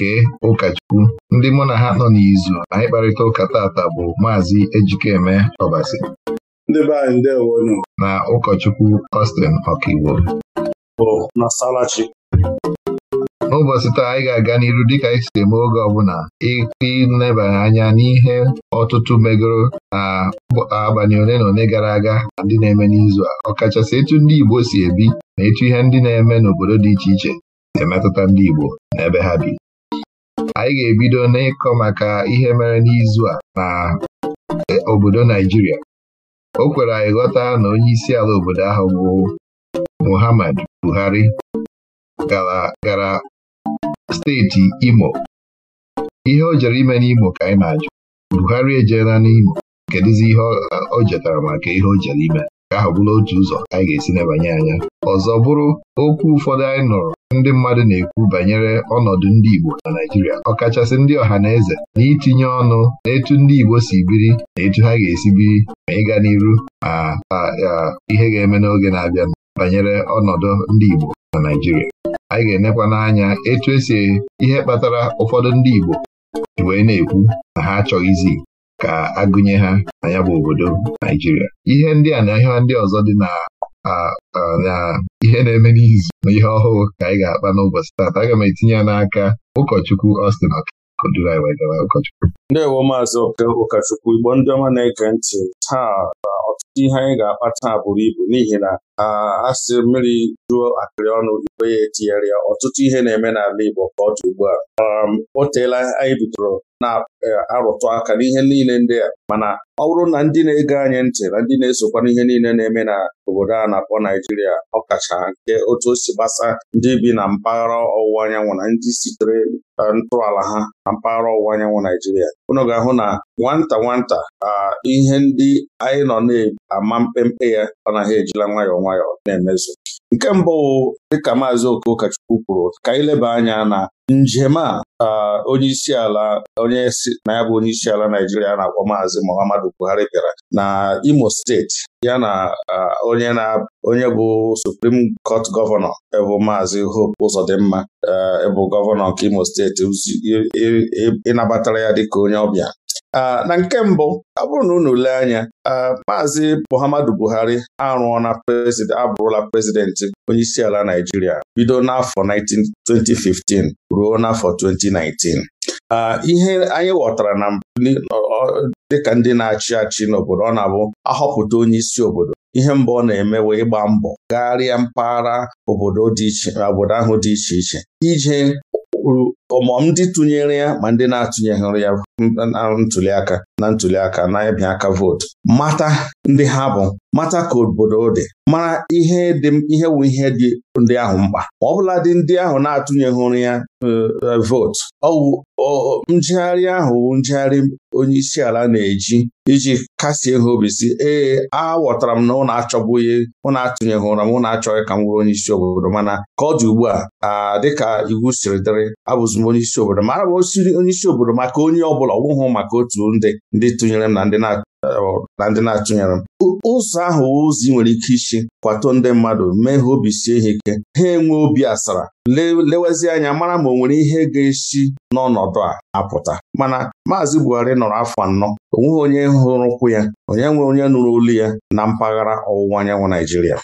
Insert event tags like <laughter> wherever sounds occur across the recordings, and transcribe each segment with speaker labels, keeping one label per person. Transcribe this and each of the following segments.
Speaker 1: nke ụkọchukwu ndị mụ na ha nọ n'izu anyị kparịta ụka tata bụ maazị Ejikeme Ọbasi na ụkọchukwu ostin Ọkaiwo n'ụbọchị taa anyị ga-aga n'iru dịka anyị si eme oge ọbụla ịnebanye anya n'ihe ọtụtụ megoro na abalị ole na ole gara aga na ndị na-eme n'izu a ọkachasị etu ndị Igbo si ebi na etu ihe ndị na-eme n'obodo dị iche iche na-emetụta ndị Igbo na ebe ha bi anyị ga-ebido n'ịkọ maka ihe mere n'izu a na e, obodo Naijiria o kwere anyị ghọta na onye isi ala obodo ahụ bụ Muhammad Buhari gara steeti Imo ihe o jere ime n'Imo ka anyị na-ajụ Buhari ejela n'Imo kedụzi ihe o jetara maka ihe o jere ime ka ahụ bụrụ otu ụzọ anyị ga-esi nebanye anya ọzọ bụrụ okwu ụfọdụ anyị nụrụ ndị mmadụ na-ekwu banyere ọnọdụ ndị Igbo na naijiria ọkachasị ndị ọha na eze na itinye ọnụ naetu ndị Igbo si biri na etu ha ga-esi biri ma ịga n'iru ma ihe ga-eme n'oge na-abịa banyere ọnọdụ ndị Igbo na naijiria anyị ga-enekwa n'anya etu esi ihe kpatara ụfọdụ ndị Igbo wee na-ekwu na ha achọghịzi ka agụnye ha na ya bụ obodo Naijiria ihe ndị a na ihe ndị ọzọ dị na na ihe na-eme n'izu na ihe ọhụụ ka anyị ga-akpa n'ụbọchị taata aga m etinye ya n'aka ụkọchukwu Austin ụkọchukwu. maazị ụkọchukwu Igbo ndị ọma
Speaker 2: na-ege ntị taa ọtụtụ ihe anyị ga-akpa taa buru ibu n'ihi na asị mmiri juo akịrị ọnụ igwe ya etinyere ya ọtụtụ ihe na-eme n'ala Igbo ka ọ dị ugbu a um, o teela anyị bidoro na-arụtụ e, aka n'ihe niile ndị a mana ọ bụrụ na ndị na-ege anyị ntị na ndị na-esokwa n'ihe niile na-eme na obodo a na-akpọ Naijiria ọkacha nke otu o si gbasa ndị bi na mpaghara ọwụwa anyanwụ na ndị sitere e, ntọala ha na mpaghara ọwụwa anyanwụ Naijiria unu ga-ahụ na nwata nwata ihe ndị anyị nọ na ama mkpemkpe ya ọ naghị ejila nwayọọ nwayọ na-emezu nke mbụ dịka maazị Okokachukwu kwuru ka anyị anya na njem a onyeisi ala onye na ya bụ onyeisi ala Naijiria na-akpọ maazị Muhammadu Buhari bịara na Imo steeti ya na onye na onye bụ Supreme Court gọvanọ bụ maazị Hope Uzodimma bụ gọvanọ nke Imo steeti ịnabatara ya dịka onye ọbịa na nke mbụ ọ bụrụ na unu lee anya maazị Muhammadu Buhari arụọla na abụrụla prezidenti onyeisiala Naijiria bido n'afọ 2015 ruo n'afọ 2019 ihe anyị ghọtara na dịka ndị na-achị achị n'obodo ọ na-abụ ahọpụta onye isi obodo ihe mbụ ọ na-eme wee gbaa mbọ gagharịa mpaghara obodo ahụ dị iche iche ije kwuru ọmọm ndị tụnyere ya ma ndị na-atụnyeghịrị ya na ntuli aka na ntuli aka na ịbịa aka vootu mata ndị ha bụ mata ka obodo dị mara ihe dị ihe wụ ihe dị ndị ahụ mkpa ma ọ bụla dị ndị ahụ na-atụnyeghịrị ya uh, uh, vootu ọwụ njegharị ahụ njegharị onye isi ala na-eji iji kasie ha obi si ee aghọtara m na ụnụ achọbụghị na atụnyeghị ụra m na achọghị ka m bụrụ onye isi obodo mana ka ọ dị ugbu a dịka iwu siri dịrị abụzi m onye isi obodo ma m osiri onye isi obodo maka onye ọ bụla ọ maka otu ndị ndị tụnyere m na ndị na na ndị na-atụnyere m ụzọ ahụ ozi nwere ike isi kwato ndị mmadụ mee ha obi sie ha ike ha enwe obi asara lewezi anya mara ma o nwere ihe ga-esi n'ọnọdụ a apụta mana Maazị Buhari nọrọ afọ anọ o nweghị onye hụrụ ụkwụ ya onye nwe onye nụrụ olu ya na mpaghara ọwụwa anyanwụ Naijiria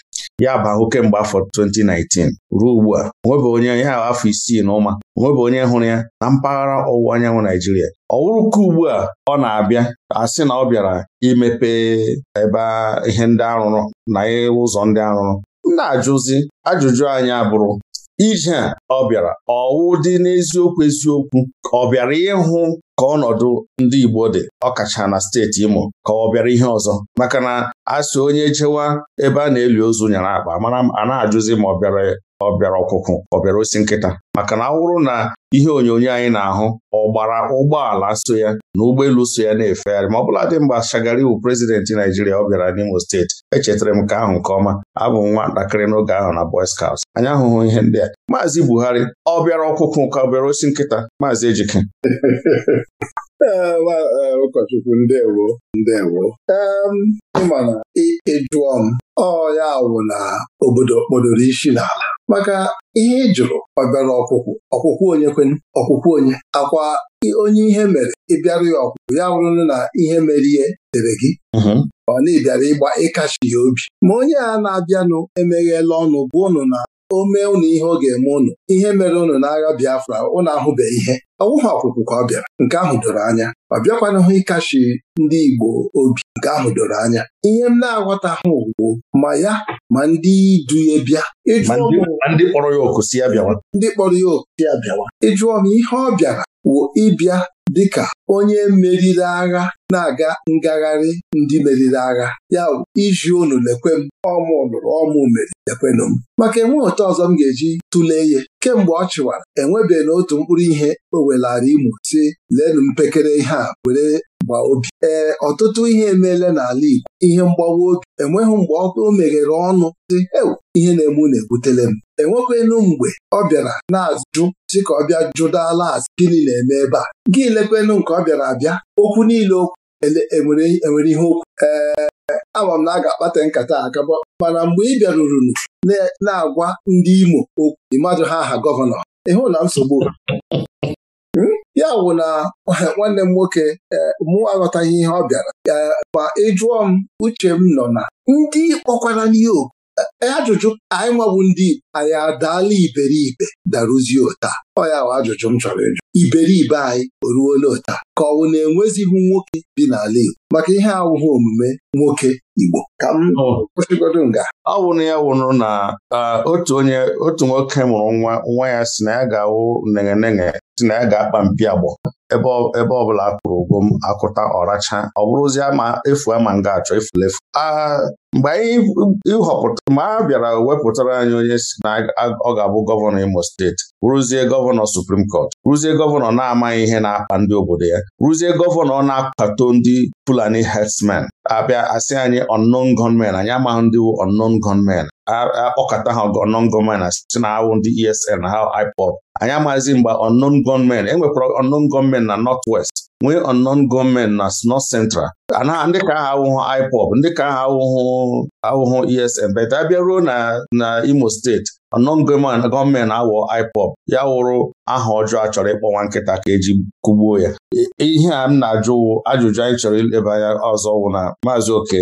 Speaker 2: ya bụ ahụ kemgbe afọ 2019 ruo ugbu a onwebe onye ya afọ isii na ụma onwebe onye hụrụ ya na mpaghara ọwụwa anyanwụ Naijiria ọ ka ugbu a ọ na-abịa asị na ọ bịara imepe ebe ihe ndị arụrụ na ụzọ ndị arụrụ m na-ajụzi ajụjụ anyị abụrụ ije a ọ bịara ọwụ dị n'eziokwu eziokwu ọ bịara ịhụ ka ọnọdụ ndị Igbo dị ọkacha na steeti Imo ka ọ bịara ihe ọzọ maka na asị onye chewa ebe a na-eli ozu nyere akpa a na-ajụzi ma ọ bịara ọ bịara ọkụkụ ọ bịara osi nkịta maka na ọ na ihe onyonyo anyị na-ahụ ọ gbara ụgbọala so ya na ụgbọelu so ya na-efegharị ma ọ bụla dị mgbe iwu prezidenti Naijiria ọ bịara n'Imo steeti echetara m nke ahụ nke ọma abụ m nwatakịrị n'oge ahụ na Boy Scouts anyị ahụhụ ihe ndị a Maazị Buhari ọ bịara ọkụkụ ka ọ bịara osi nkịta Maazị Ejike
Speaker 3: <laughs> e, ụkọchukwu ndewo ndewo ịma na ị jụọ m ọ ya wụ na obodo kpọdoro isi n'ala maka ihe ị jụrụ ọbịara ọkwụkwụ ọkwụkwụ onye kwen ọkwụkwụ onye akwa onye ihe mere ịbịara ya ọkwụkwụ ya wụrụ na ihe mere ihe dere gị mm-hmm. ọ na ịbịara ịgba ịkachi ya obi ma onye a na-abịanụ emeghela ọnụ bụ ụnụ na o mee ụnụ ihe ọ ga-eme ụnụ ihe mere ụnụ n'agha Biafra ụnụ ahụbeghị ihe ọ wụghị ka ọ bịara nke ahụ doro anya ọ bịakwanahụ ịkachi ndị Igbo obi nke ahụ doro anya ihe m na-aghọta ha ugbo ma ya ma ndị du ya bịa
Speaker 2: ndị kpọrọ ya oku ya
Speaker 3: bịawa ịjụọ m ihe ọ bịara wụ ịbịa dịka onye meriri agha na-aga ngagharị ndị meriri agha ya iji unu lekwe m ọmụ lụrụ ọmụ mere lekwenụ m maka enwe otu ọzọ m ga-eji tụlee ihe kemgbe ọ chịwara enwebeghị n'otu mkpụrụ ihe o welara Imo si leenụ mpekere ihe a were gbaa obi ee ọtụtụ ihe emeela n'ala Igbo ihe mgbawa obi enweghị mgbe ọkụ o meghere ọnụ dị ewu ihe na-eme na-ebutele m enwekwenu mgbe ọ bịara na-ajụ si ka ọ bịa jụdala azụ gịnị na-eme ebe a gị lekwenu nke ọ bịara abịa okwu niile okwu enwere e e ihe okwu ee ama m na a ga-akpata nkata akaba mana mgbe ị bịaruru na-agwa ndị Imo okwu mmadụ ha aha gọvanọ ịhụ na nsogbu hmm? ya wụ na eh, nwanne m nwoke eh, mụ aghọtaghị ihe ọ bịara eh, ma ịjụọ m uche m nọ na ndị kpọkwara n'ihe oku ajụjụ anyị nwabụ ndị anyị adaala iberibe daruzie ụta ọ ya bụ ajụjụ m chọrọ ịjụ iberibe anyị o ruola ụta ka ọ bụ na enwezighị nwoke dị n'ala Igbo maka ihe awụghị omume nwoke Igbo ka m oh. kwụsịgodo nga
Speaker 2: ọ wụrụ ya wụrụ na otu onye otu nwoke mụrụ nwa nwa ya si na ya ga-awụ negenege si na ya ga-akpa mpi agbọ ebe ọbụla a kwụrụ ụgwọ m akụta ọracha ọ bụrụzie ma efu ama nga achọ efulefu mgbe anyị họpụta mgbe a bịara wepụtara anyị onye si na ọ ga-abụ gọvanọ Imo steeti rụzie gọvanọ suprim kọt rụzie gọvanọ na-amaghị ihe na-akpa ndị obodo ya rụzie gọvanọ na-akpato ndị Fulani herdsmen abịa asị anyị unknown gunmen anyị amaghị ndị wu unknown gunmen akpọkọta ha unknown gunmen na site na awụ ndị ESN ha IPOB anyị amaghịzi mgbe unknown gunmen enwekwara unknown gunmen na west nwee unknown gunmen na North Central ndị ka aha awụhụ IPOB ndị ka aha awụhụ awụhụ ESN bet abịa ruo na Imo steeti ọnọngọman gọọmenti awọ IPOB ya wụrụ aha ọjọọ a chọrọ ịkpọ nwa nkịta ka eji kụgbuo ya ihe a m na-ajụ ajụjụ anyị chọrọ ileba anya ọzọ wụ na Maazị Oke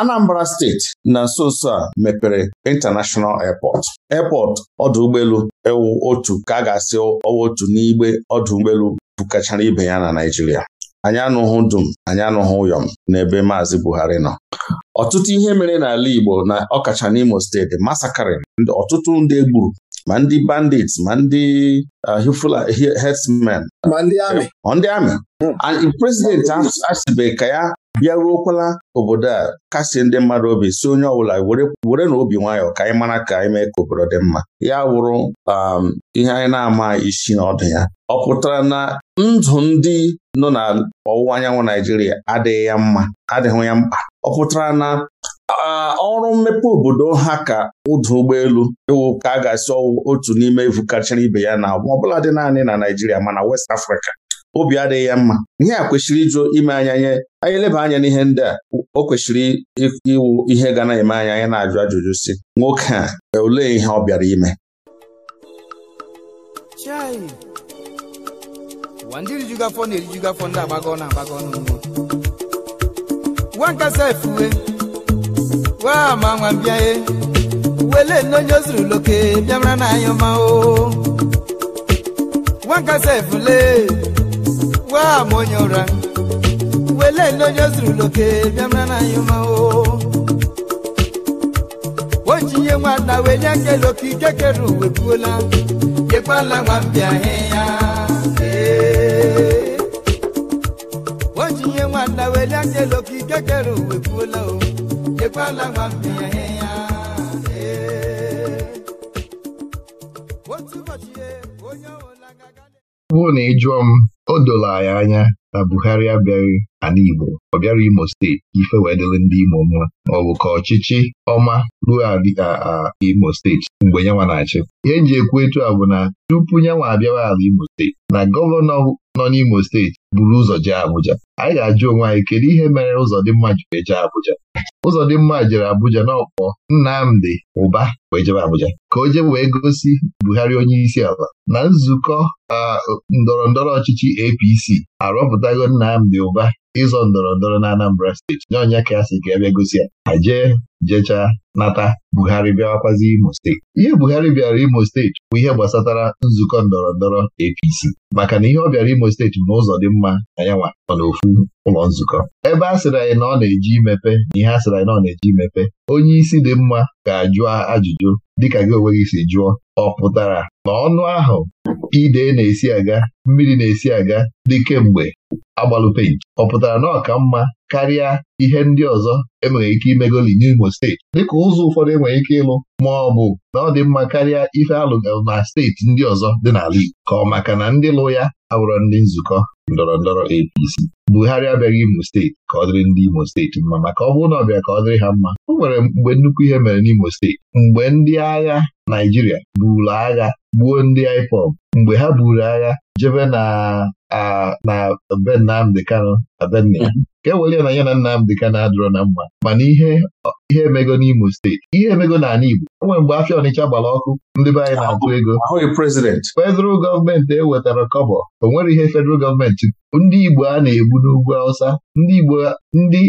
Speaker 2: Anambra steeti na nso nso a mepere Intanashọnal airport airport ọdụ ụgbọelu ewu otu ka a ga-asị ọwa otu n'igbe ọdụ ụgbọelu bukachara ibe ya na Naịjirịa anyị anụghụ dum anyị anụghụ ụyọm n'ebe Maazị Buhari nọ ọtụtụ ihe mere n'ala Igbo na ọkacha n'Imo steeti masakarịn ọtụtụ ndị egburu ma ndị bandits ma ndị hifula uh, herdsmen ma ndị amị hmm. prezidenti asịbe ka ya bịaruokwala obodo a kasị ndị mmadụ obi si onye ọbụla were na obi nwayọọ ka anyị mara ka anyị mee ka obodo dị mma ya wụrụ um, ihe anyị na-ama isi n'ọdụ ya ọ pụtara na ndụ ndị nọ na ọwụwa anyanwụ Naijiria adịghị ya mma adịghị ya mkpa ọ pụtara na uh, ọrụ mmepe obodo ha ka ụdụ ụgbọelu ịwụ ka a ga-asị otu n'ime ivu kachara ibe ya na ọbụla dị naanị na Naijiria mana West Africa obi adịghị ya mma ihe a kwesịrị ịjụ ime anya nye anyị eleba anya n'ihe ndị a o kwesịrị iwu ihe ga na-eme anya anyị na-ajụ ajụjụ si nwoke a olee ihe ọ bịara ime
Speaker 4: gwa m onye ụra wele ndị onye zurulke bịara na anyị onjinye nwanna wee nye ike nwa mbịa ya nwanna wee nye ike kere uwe nwa mbịa ya
Speaker 1: otu ụbọchị onye ọ bụrụ na ị m o doro anyị anya na Buhari abịaghị ala Igbo ọ bịara Imo steeti ife wee ndị Imo mma ọ bụ ka ọchịchị ọma ruo Imo steeti mgbe nyanwa na-achị ihe nji ekwu a bụ na tupu nyanwa abịawa ala Imo steeti na gọvanọ nọ n'Imo steeti buru ụzọ jee Abuja anyị ga-ajụ onwe anyị kedu ihe mere Ụzọdịmma jiri eje Abuja mma jere Abuja n'ọkpọ Nnamdi Ụba wee jebe Abuja ka o jebe wee gosi Buhari onye isi ala na nzukọ uh, ndọrọ ndọrọ ọchịchị APC arọpụtago Nnamdi Ụba ịzọ ndọrọ ndọrọ na Anambra steeti nye onye ka ya si ka ebe gosi ya ha jee jechaa nata Buhari bịawakwazi Imo steeti ihe Buhari bịara Imo steeti bụ ihe gbasatara nzukọ ndọrọ ndọrọ APC maka na ihe ọ bịara Imo steeti bụ n'ụzọ dị mma na ya nwa nọ n'ofu ụlọ nzukọ ebe a sịrị anyị na ọ na-eji imepe na ihe a sịrị anyị na ọ na-eji imepe onye isi dị mma ga-ajụ ajụjụ dịka gị onwe gị si jụọ ọ pụtara na ọnụ ahụ ide na-esi aga mmiri na-esi aga dị kemgbe agbalụ penti ọ pụtara na ọka mma karịa ihe ndị ọzọ enwere ike imegoli n'Imo steeti dịka ụzọ ụfọdụ enwere ike ịlụ ma ọ bụ na ọ dị mma karịa ife alụgalụ na steeti ndị ọzọ dị n'ala Igbo ka ọ maka na ndị lụ ya abụrọ ndị nzukọ ndọrọ ndọrọ APC Buhari abịaghị Imo steeti ka ọ dịrị ndị Imo steeti mma maka ọ bụrụ na ka ọ dịrị ha mma o nwere mgbe nnukwu ihe mere n'Imo steeti mgbe ndị agha Naijiria buuru agha gbuo ndị IPOB mgbe ha buru agha jebe na na be Nnamdị Kanụ Adanna ka e na ya na m ka na-adịrọ na mma mana ihe ihe emego n'Imo steeti ihe emego n'ala Igbo enwere mgbe afịa Ọnịcha gbara ọkụ ndị be anyị na-atụ ego federal gọọmenti ewetara kọbọ o nwere ihe federal gọọmenti ndị Igbo a na-egbu n'ugwu Awụsa ndị Igbo ndị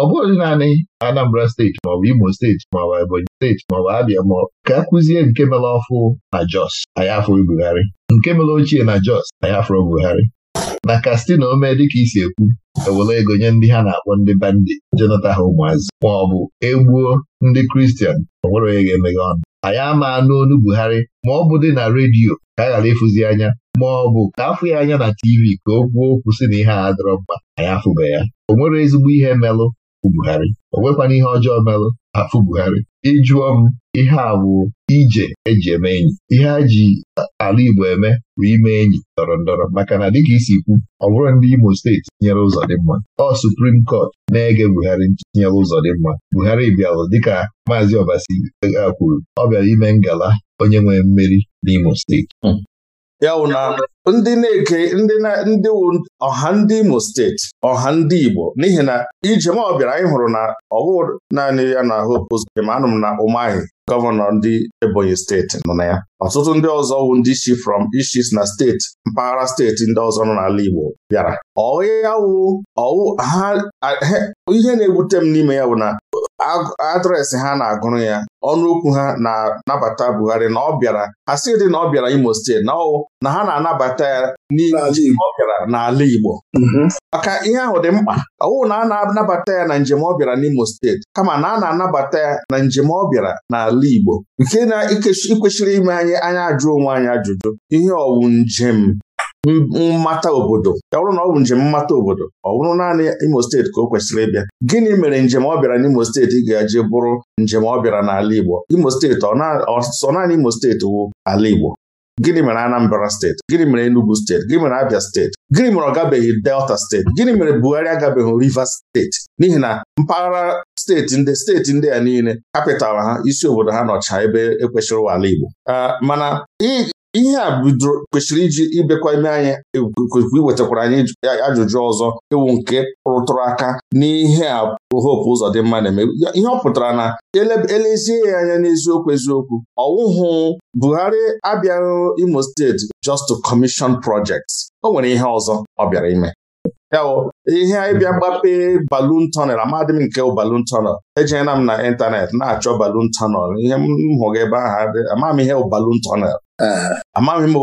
Speaker 1: ọ bụghị naanị Anambra steeti maọbụ Imo steeti maọbụ Ebonyi steeti maọbụ Abịa ma ka akụzie nke mere ọfụ na Jos anyị afọ Buhari nke mere ochie na Jos anyị afọ Buhari na kastina omee dịka isi ekwu ewere ego nye ndị ha na-akpọ ndị bandi jenata ha ụmụazị ma ọ bụ egbuo ndị kristian ọ nwere onye ga-emeghe ọnụ anyị ama n'onu Buhari ma ọ bụ dị na redio ka a ghara ịfụzi anya ma ọ bụ ka afụ ya anya na TV ka o kwuo okwu si na ihe a adịrọ mma anyị afụbe ya o nwere ezigbo ihe melụ afụ Buhari o nwekwana ihe ọjọọ merụ afụ Buhari ịjụọ m ihe a bụ ije eji eme enyi ihe a ji ala Igbo eme bụ ime enyi ndọrọ ndọrọ maka na dịka isi kwu ọ bụrụ ndị Imo steeti tinyere ụzọ dị mma ọ Suprim Kọt na-ege Buhari tinyere ụzọ dị mma Buhari bịalụ dịka Maazị Obasi e, e, kwuru ọ bịara ime ngala onye nwere mmeri n'Imo steeti hmm. ya na ndị na-eke
Speaker 2: ndị ndị ọha ndị Imo steeti ọha ndị Igbo n'ihi na ijem ọ anyị hụrụ na ọ naanị ya na Hope Uzodinma anụ m na Umahi gọvanọ ndị Ebonyi steeti nọ na ya ọtụtụ ndị ọzọ wụ ndị si from ishis na steeti mpaghara steeti ndị ọzọ nọ n'ala Igbo bịara ọya wụ ọwụ ha ihe na-ewute m n'ime ya bụ na adreesị ha na-agụrụ ya ọnụ okwu ha na-anabata Buhari na ọ bịara ha dị na ọ bịara Imo steeti na ọ na ha na-anabata ya n'ihi ọ bịara n'ala Igbo mhm. maka ihe ahụ dị mkpa ọwụ na a na-anabata ya na njem ọ bịara n'Imo steeti kama na a na-anabata ya na njem ọ bịara n'ala Igbo nke na ikwesịrị ime anyị anya ajụ onwe anyị ajụjụ ihe ọwụ njem mmata obodo ya bụrụ na ọ bụ njem mmata obodo ọ bụrụ naanị Imo steeti ka o kwesịrị ịbịa gịnị mere njem ọ bịara n'Imo steeti ga-eji bụrụ njem ọ bịara n'ala Igbo Imo steeti ọ sọ naanị Imo steeti wụ ala Igbo gịnị mere Anambra steeti gịnị mere Enugu steeti gịnị mere Abia steeti gịnị mere ọ gabeghị Delta steeti gịnị mere Buhari agabeghị Rivers steeti n'ihi na mpaghara steeti ndị steeti ndị a niile kapịtalụ ha isi obodo ha nọcha ebe ekwesịrị ụwa ala Igbo ah, mana ihe a bidoro kwesịrị iji ịbịakwa ime anyị iwetakwara anyị ajụjụ ọzọ iwu nke rụtụrụ aka n'ihe a hope ụzọ dị mma na-eme ihe ọ pụtara na elezie ya anya n'eziokwu eziokwu ọwụhụ Buhari abịaghị Imo steeti just to commission projects o nwere ihe ọzọ ọ bịara ime yawo ihe anyị bịa gbape balun tọnel amadị m nke balun tonel Ejina m na ịntanetị na-achọ balun tonel ihe m hụrụ ebe ahụ amaghị m ihe balun tọnel amaghị m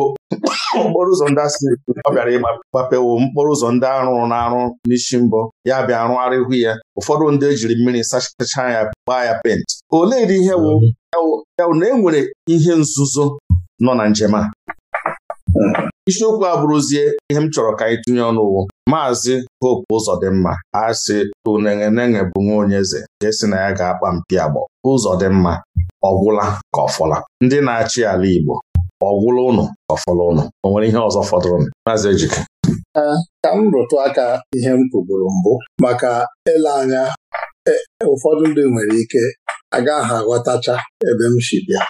Speaker 2: okporo ụzọ ndị asị ọ bịara ịgbapewo mkporo ụzọ ndị arụrụ na-arụ n'isi mbọ ya bịa arụ arịhụ ya ụfọdụ ndị ejiri mmiri sachacha ya gbaa ya pent. olee dị ihe wụ na enwere ihe nzuzo nọ na njem a isiokwu abụrụzie ihe m chọrọ ka anyị tinye ọnụ ụwụ maazị Hope Uzodimma asị tunenenege bụ nwa onye eze nke si na ya ga-akpa mpi agbọ Uzodimma ọgwụla ka ọfọla ndị na-achị ala Igbo ọgwụla ụnụ ka ọfọla ụnụ o nwere ihe ọzọ fọdụrụ maazị
Speaker 3: Ejike ka m rụtụ aka ihe m kwuburu mbụ maka ele anya e, ụfọdụ ndị nwere ike agaghị aghọtacha ebe m si bịa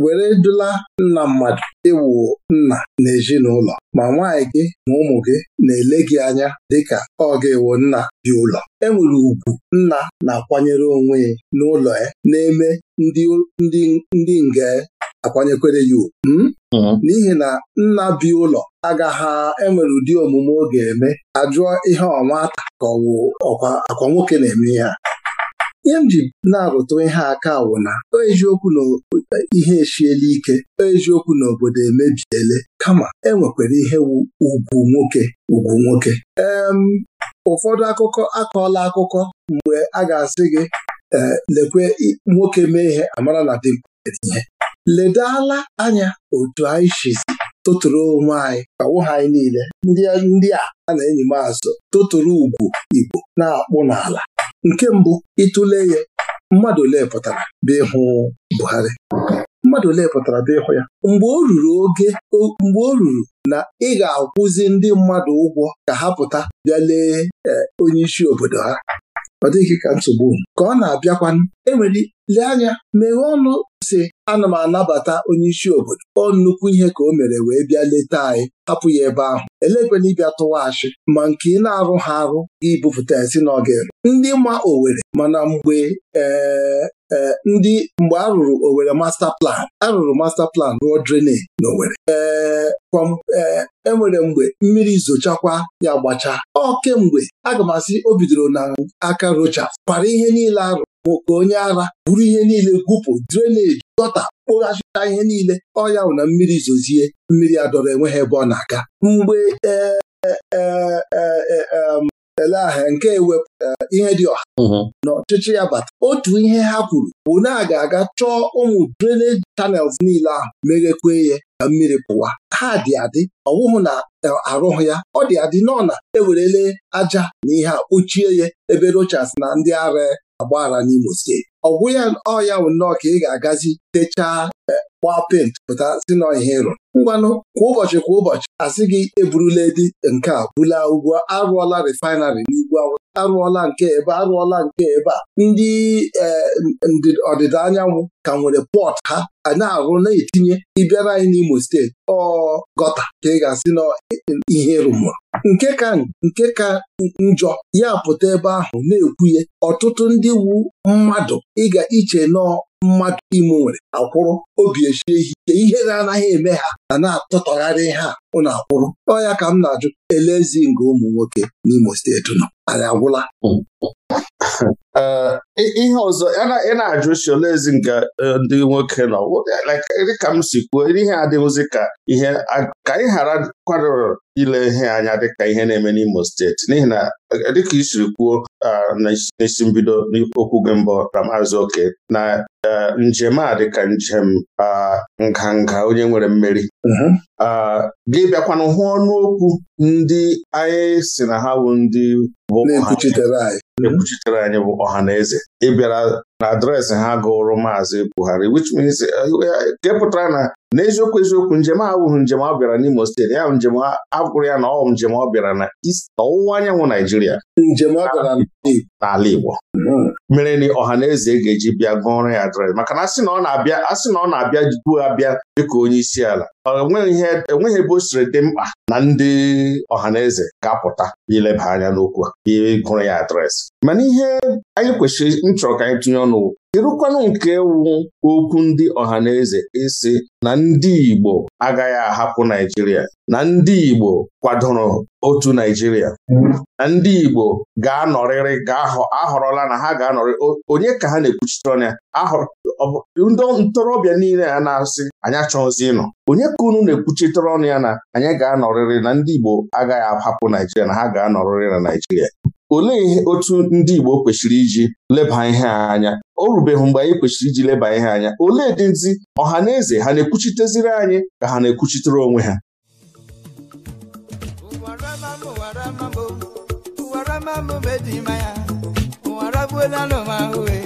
Speaker 3: were dula nna mmadụ ịwụ e nna na ezinụlọ ma nwaanyị gị ma ụmụ gị na-ele gị anya dịka ọ ga-ewo nna dị ụlọ e nwere ugwu nna na-akwanyere onwe ya n'ụlọ ya na-eme ndị nge akwanyekwere ya ugwu hmm? hmm. n'ihi na nna bi ụlọ agaghị enwere ụdị omume ọ ga-eme ajụọ ihe ọma ka ọkwa akwa nwoke na-eme ihe a ihe m ji na-arụtụ ihe aka wụ na eziokwu ihe echiela ike eziokwu na obodo emebiele kama enwekwara ihe ugwu nwoke ugwu nwoke em ụfọdụ akụkọ akọọla akụkọ mgbe a ga-asị gị e, lekwe nwoke mee ihe amara na ihe. ledala anya otu anyị shizi tụtụrụ onwe anyị kawo ha anyị niile ndị a a na-enyi m azụ tụtụrụ ugwu Igbo na-akpụ n'ala nke mbụ ịtụle ya mmadụ ole pụtara bịa ịhụ Buhari mmadụ ole pụtara bịa ịhụ ya mgbe o ruru oge mgbe o ruru na ị ga-akwụzi ndị mmadụ ụgwọ ka ha pụta bịa lee e, onye isi obodo ha ọ dịghị ka nsogbu ka ọ na-abịakwanụ enwere lee anya meghee ọnụ sị ana m anabata onye isi obodo ọ nnukwu ihe ka o mere wee bịa leta anyị hapụ ya ebe ahụ elekwana ịbịa tụwa achị ma nke ị na-arụ ha arụ ibupụta esi si n'oge ndị ma Owere mana mgbe eh, eh, ndị mgbe a rụrụ Owere master plan arụrụ rụrụ master plan rụọ drainage na Owere enwere eh, e mgbe mmiri zochakwa ya gbachaa ọ kemgbe aga m asị o bidoro na aka rocha kwara ihe niile arụ nwoke onye ara buru ihe niile gwupụ dreneji gọta kpụghachita ihe niile ọya bụ na mmiri zozie mmiri adọrọ enwe ha ebe ọ na-aga mgbe e, e, e, ele ahịa nke ewepụ ihe dị ọha mhm. n'ọchịchị ya bata otu ihe ha kwuru bụ na a ga-aga chọọ ụmụ drainage channels niile ahụ meghekwe ya ka mmiri pụwa ha dị adị ọwụhụ na arụhụ ya ọ dị adị nọ na ewerele aja na ihe a kpochie ya ebe rochas na ndị ara agbaghara n'Imo steeti ọgwụ ya ọya bụ nnọọ ka ị ga-agazi techaa eh, gbaa pent pụta si n'ihe ịrụ ngwanụ kwa ụbọchị kwa ụbọchị asị gị eburula edi nke a bula ugwu arụọla refinarị n'ugwu awụsa arụọla nke ebe arụọla nke ebe a ndị eh, ọdịda anyanwụ ka nwere pọt ha na-arụ na-etinye ịbịara anyị n'Imo steeti ọ gọta ka ị ga-asị na ihe rụmụrụ nke ka njọ ya pụta ebe ahụ na-ekwuye ọtụtụ ndị wu mmadụ ịga iche nọọ mmadụ ime nwere akwụrụ obi echie ihe na ihere anaghị eme ha na na-atụtọgharị ha Ụlọ akwụrụ ọ ya ka m na-ajụ elezi nga ụmụ nwoke n'Imo steeti nọ anyị agwụla <laughs>
Speaker 2: ihe ọzọ ị na-ajụ
Speaker 3: si olezi nke e, ndị nwoke nọ
Speaker 2: dịka m si kwuo ihe adịghịzi ka ihe ka anyị ghara kwadoro ile ihe anya dịka ihe na-eme n'Imo steeti n'ihi na e, dịka i siri kwuo n'isi mbido n'okwu gị mbụ Ramazị Oke na e, njem a dịka njem nganga onye nwere mmeri mhm. gị bịakwanụ hụ ọnụ okwu ndị anyị si na ha wu ndị na-ekwuchitere anyị ekwuchitere anyị bụ ọha na eze ịbịara na adreesị ha gụrụ maazị Buhari which means eh, eh, eh, nke pụtara na n'eziokwu eziokwu njem abụghị njem ọ bịara n'Imo steeti ya njem agụrụ ya na ọ njem ọ bịara na ọwụwa anyanwụ Naijiria njem n'ala Igbo hmm. mere na ọha na eze ga-eji bịa gụọrọ ya adreesị maka na asị na ọ na-abịa asị na ọ na-abịa duo abịa dịka onye isi ala enweghị ebe o siri dị mkpa na ndị ọhaneze ga-apụta ileba anya n'okwu a ịgụrụ e ya adreesị mana ihe anyị kwesịrị nchọrọ ka anyị tụnye ọnụ ịrụkwanụ nke wu okwu ndị ọhaneze isi na ndị Igbo agaghị ahapụ Naijiria na ndị Igbo kwadoro otu Naijiria na ndị Igbo ga-anọrịrị ga-ahọrọla na ha ga-anọrị onye ka ha na-ekwuchite ọnya ndị ntorobịa niile a na-asị anyị achọghịzi ịnọ onye ka unu na-ekwuchitere ọnụ ya na anyị ga-anọrịrị na ndị Igbo agaghị ahapụ Naijiria na ha ga-anọrịrị na Naijiria olee otu ndị Igbo kwesịrị iji leba ihe anya o rubeghị mgbe anyị kwesịrị iji leba ihe anya olee dị nzi ọha na eze ha na-ekwuchiteziri anyị ka ha na-ekwuchitere onwe ha
Speaker 4: ụwara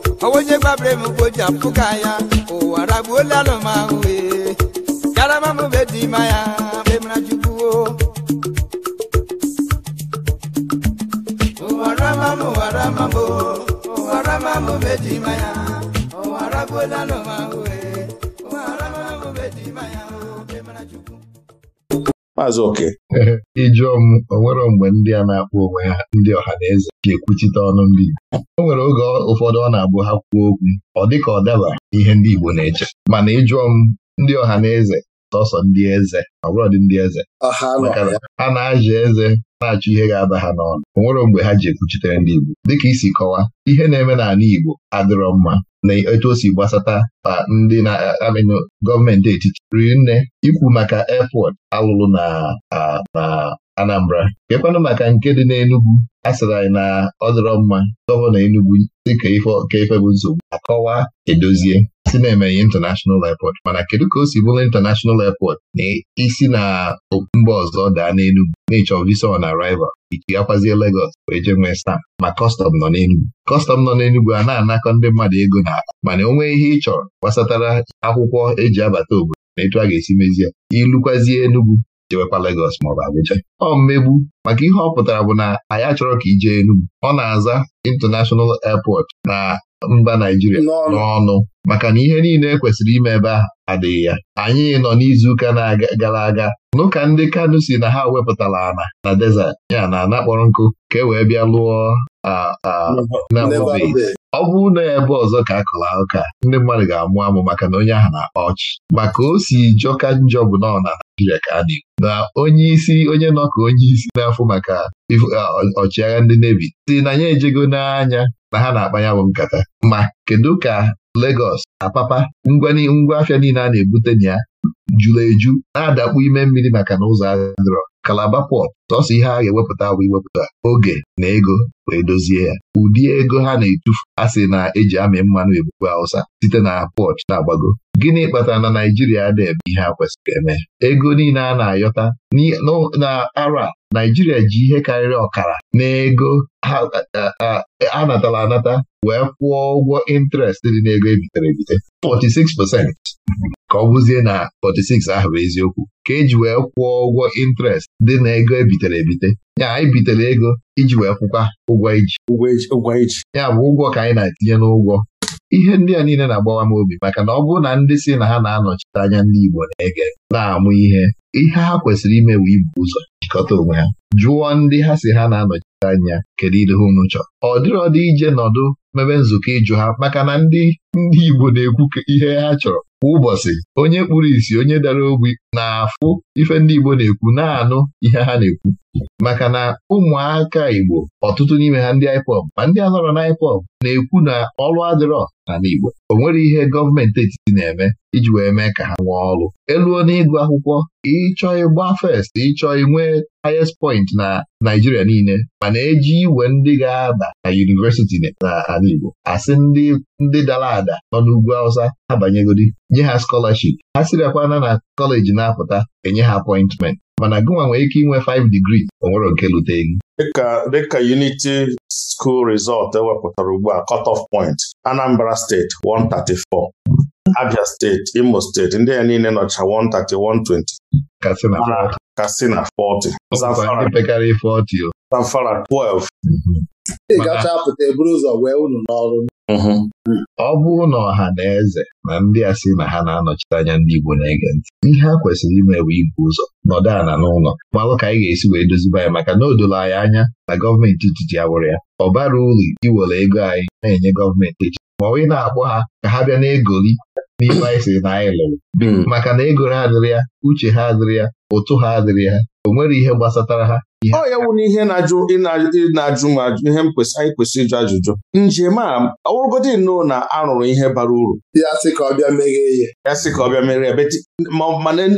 Speaker 4: ọwa onye gbabara m mgbe o ji apụka ya ụwa ragbuola anụ m ahụ ee karama be dị ma ya mgbe mara jukwuo ụwa rama m ụwa rama be dị ma ya ụwa ragbuola anụ m ahụ
Speaker 1: Maazị Oke. <laughs> Ijụọ m onwere mgbe ndị a na-akpọ onwe ha ndị ọha na eze ga-ekwuchite ọnụ ndị o nwere oge ụfọdụ ọ na-abụ ha kwuo okwu ọ dịka ọ daba ihe ndị Igbo na-eche mana ịjụọ m ndị ọha na eze tọsọ ndị eze ọ bụrụ dị ndị eze ha na-azụ eze na-achọ ihe ga-aba ha n'ọnụ o nwere mgbe ha ji ekwuchitere ndị Igbo dịka isi kọwaa ihe na-eme n'ala Igbo adịrọ mma na etu o gbasata ma ndị na-amịnụ gọọmenti etiti riri nne ikwu maka airport alụrụ na na Anambra kekwanụ maka nke dị n'Enugwu. a sịrị anyị na ọ dịrọ mma gọvanọ enugwu dịka ka ife bụ nsogbu akọwa edozie Si na-emeghe International Airport mana kedu ka o si bụrụ International Airport na isi na mba ọzọ daa n'Enugwu na-echọ visa on arrival iji gakwazie Lagos wee jee nwee stamp ma kọstọm nọ n'Enugwu kọstọm nọ n'Enugwu a na-anakọ ndị mmadụ ego na mana o nwee ihe ị chọrọ gbasatara akwụkwọ eji abata obodo na etu a ga-esi mezie ilukwazie Enugwu jewekwa Lagos maọbụ Abuja ọ mmegbu maka ihe ọ pụtara bụ na anyị achọrọ ka ijee Enugwu ọ na-aza International Airport na mba Naijiria n'ọnụ maka na ihe niile e kwesịrị ime ebe a adịghị ya anyị nọ n'izuụka gara aga n'ụka ndị Kanu si na ha wepụtara ana na desert ya na ana kpọrọ nkụ ka e wee bịa lụọ ọ bụrụ na ebe ọzọ ka a kụrụ ụka ndị mmadụ ga-amụ amụ maka na onye ahụ na-akpa ọchị maka o si jọka njọ bụ nọ na Naijiria ka a na-ekwu na onye isi onye nọ ka onye isi n'afọ maka ọchịagha ndị nevi si na ya ejego n'anya na ha na akpanyanwụ nkata ma kedu ka Legọs Apapa ngwa afịa niile a na-ebute na ya eju na-adakpu ime mmiri maka na ụzọ adịrọ kalaba pọt sọsọ ihe a ga-ewepụta bụ iwepụta oge na ego wee dozie ya ụdị ego ha na-etufu a sị na-eji amị mmanụ ebube Hausa site na pọch na-agbago gịnị kpatara na Naijiria na eme ihe a kwesịrị eme ego niile a na-ayọta na ara Naijiria ji ihe karịrị ọkara n'ego a natara anata wee kwụọ ụgwọ ịntrestị dị n'ego ebitere ebite 46 ka ọ bụzie na 46 ahụ bụ eziokwu ka eji wee kwụọ ụgwọ intrest dị na ego ebitere ebite ya anyị bitere ego iji wee kwụkwa ụgwọ iji ya bụ ụgwọ ka anyị na-etinye n'ụgwọ ihe ndị a niile na-agbawa m obi maka na ọ bụrụ na ndị si na ha na-anọchite anya ndị Igbo na-ege na-amụ ihe ihe ha kwesịrị ime bụ ibu ụzọ jikọta onwe ha jụọ ndị ha si ha na-anọchite anya kedu ihe unu chọrọ ọ dịrị dị ije nọdụ mebe nzukọ ịjụ ha maka na ndị ndị Igbo na-ekwu ihe ha chọrọ kwa ụbọchị onye kpuru isi onye dara ogbi na-afụ ife ndị Igbo na-ekwu na-anụ ihe ha na-ekwu maka na ụmụaka Igbo ọtụtụ n'ime ha ndị IPOB ma ndị a na IPOB na-ekwu na ọrụ adịrọ n'ala Igbo o nwere ihe gọọmenti etiti na-eme iji wee mee ka ha nwee ọrụ eluo n'ịgụ akwụkwọ ịchọ ịgba fest ịchọ nwee highest point na Naịjirịa niile mana eji iwe ndị ga aba na yunivesiti n'ala Igbo asị ndị dara ada nọ n'ugwu Awụsa ha banyegodi nye ha skọlaship ha sirakwana na kọleji na-apụta enye ha apọịntment mana gụnwa nwere ike inwe 5 digrii onwere nke lute elu
Speaker 2: dịka Unity School Resort ewepụtara ugbu a cut-off point Anambra State 134 Abia State Imo State ndị ya niile nọcha 130
Speaker 1: 120 Katsina 40 Zamfara 12
Speaker 3: ị gacha pụta eburu ụzọ wee unu n'ọrụ
Speaker 1: ọ bụrụ na ọha na eze na ndị a sị na ha na-anọchite anya ndị Igbo na-ege ntị ihe ha kwesịrị ime bụ ibu ụzọ nọdụ ana n'ụlọ malụ ka anyị ga-esi wee doziba ya maka na o anyị anya na gọọmenti etiti ya wụrụ ya ọ bara uru iwere ego anyị na-enye gọọmenti etiti ma ọ na-akpọ ha ka ha bịa na-egoli n'ibe anyị na anyị lụrụ hmm. maka na egoro adịrị ya uche ha adịrị ya ụtụ ha adịrị ha o nwere ihe gbasatara ha ọ ya wụ na ihe na-ajụ
Speaker 2: na-ajụ m ajụ ihe m kwesịrị anyị kwesịrị ịjụ ajụjụ njem a ọwụrụgodi nnọọ na arụrụ ihe bara uru ya sị ka ọ bịa meghee ya ya sị ka ọ bịa mere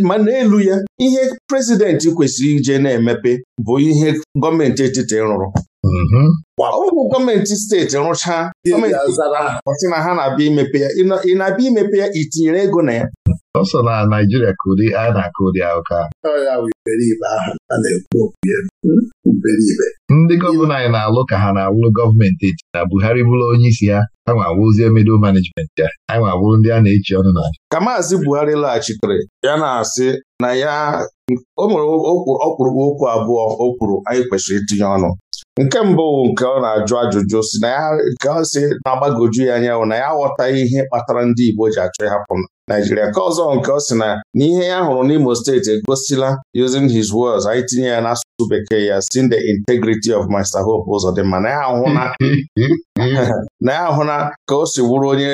Speaker 2: ma n'elu ya ihe prezidenti kwesịrị ije na-emepe bụ ihe gọọmenti etiti rụrụ mhm. ọ bụ gọọmenti steeti rụchaa gọọmenti ọsị na ha na-abịa imepe
Speaker 1: ya ị na-abịa imepe ya itinyere ego na ya ọ sọ na Naijiria ka ụdị a na-akụ ụdị ahụka hmm? ndị gọvanọ anyị na-alụ ka ha na-alụ gọọmenti eti na Buhari bụrụ onye isi ha a nwa awụzie middle ya a nwa ndị a na-echi ọnụ na
Speaker 2: ka Maazị Buhari laghachitere ya na-asị na ya o nwere ọkpụrụkpụ okwu abụọ o kwuru anyị kwesịrị itinye ọnụ nke mbụ nke ọ na-ajụ ajụjụ si na ya nke ọ si na-agbagoju ya anya na ya aghọtaghị ihe kpatara ndị Igbo ji achọ ịhapụ Naijiria ka ọzọ nke ọ sị na n'ihe ya hụrụ n'Imo steeti egosila using his words anyị tinye ya n'asụsụ bekee ya sin the integrity of Mr. Hope ụzọ dị mma na ya ahụ na <laughs> ka o si wuru onye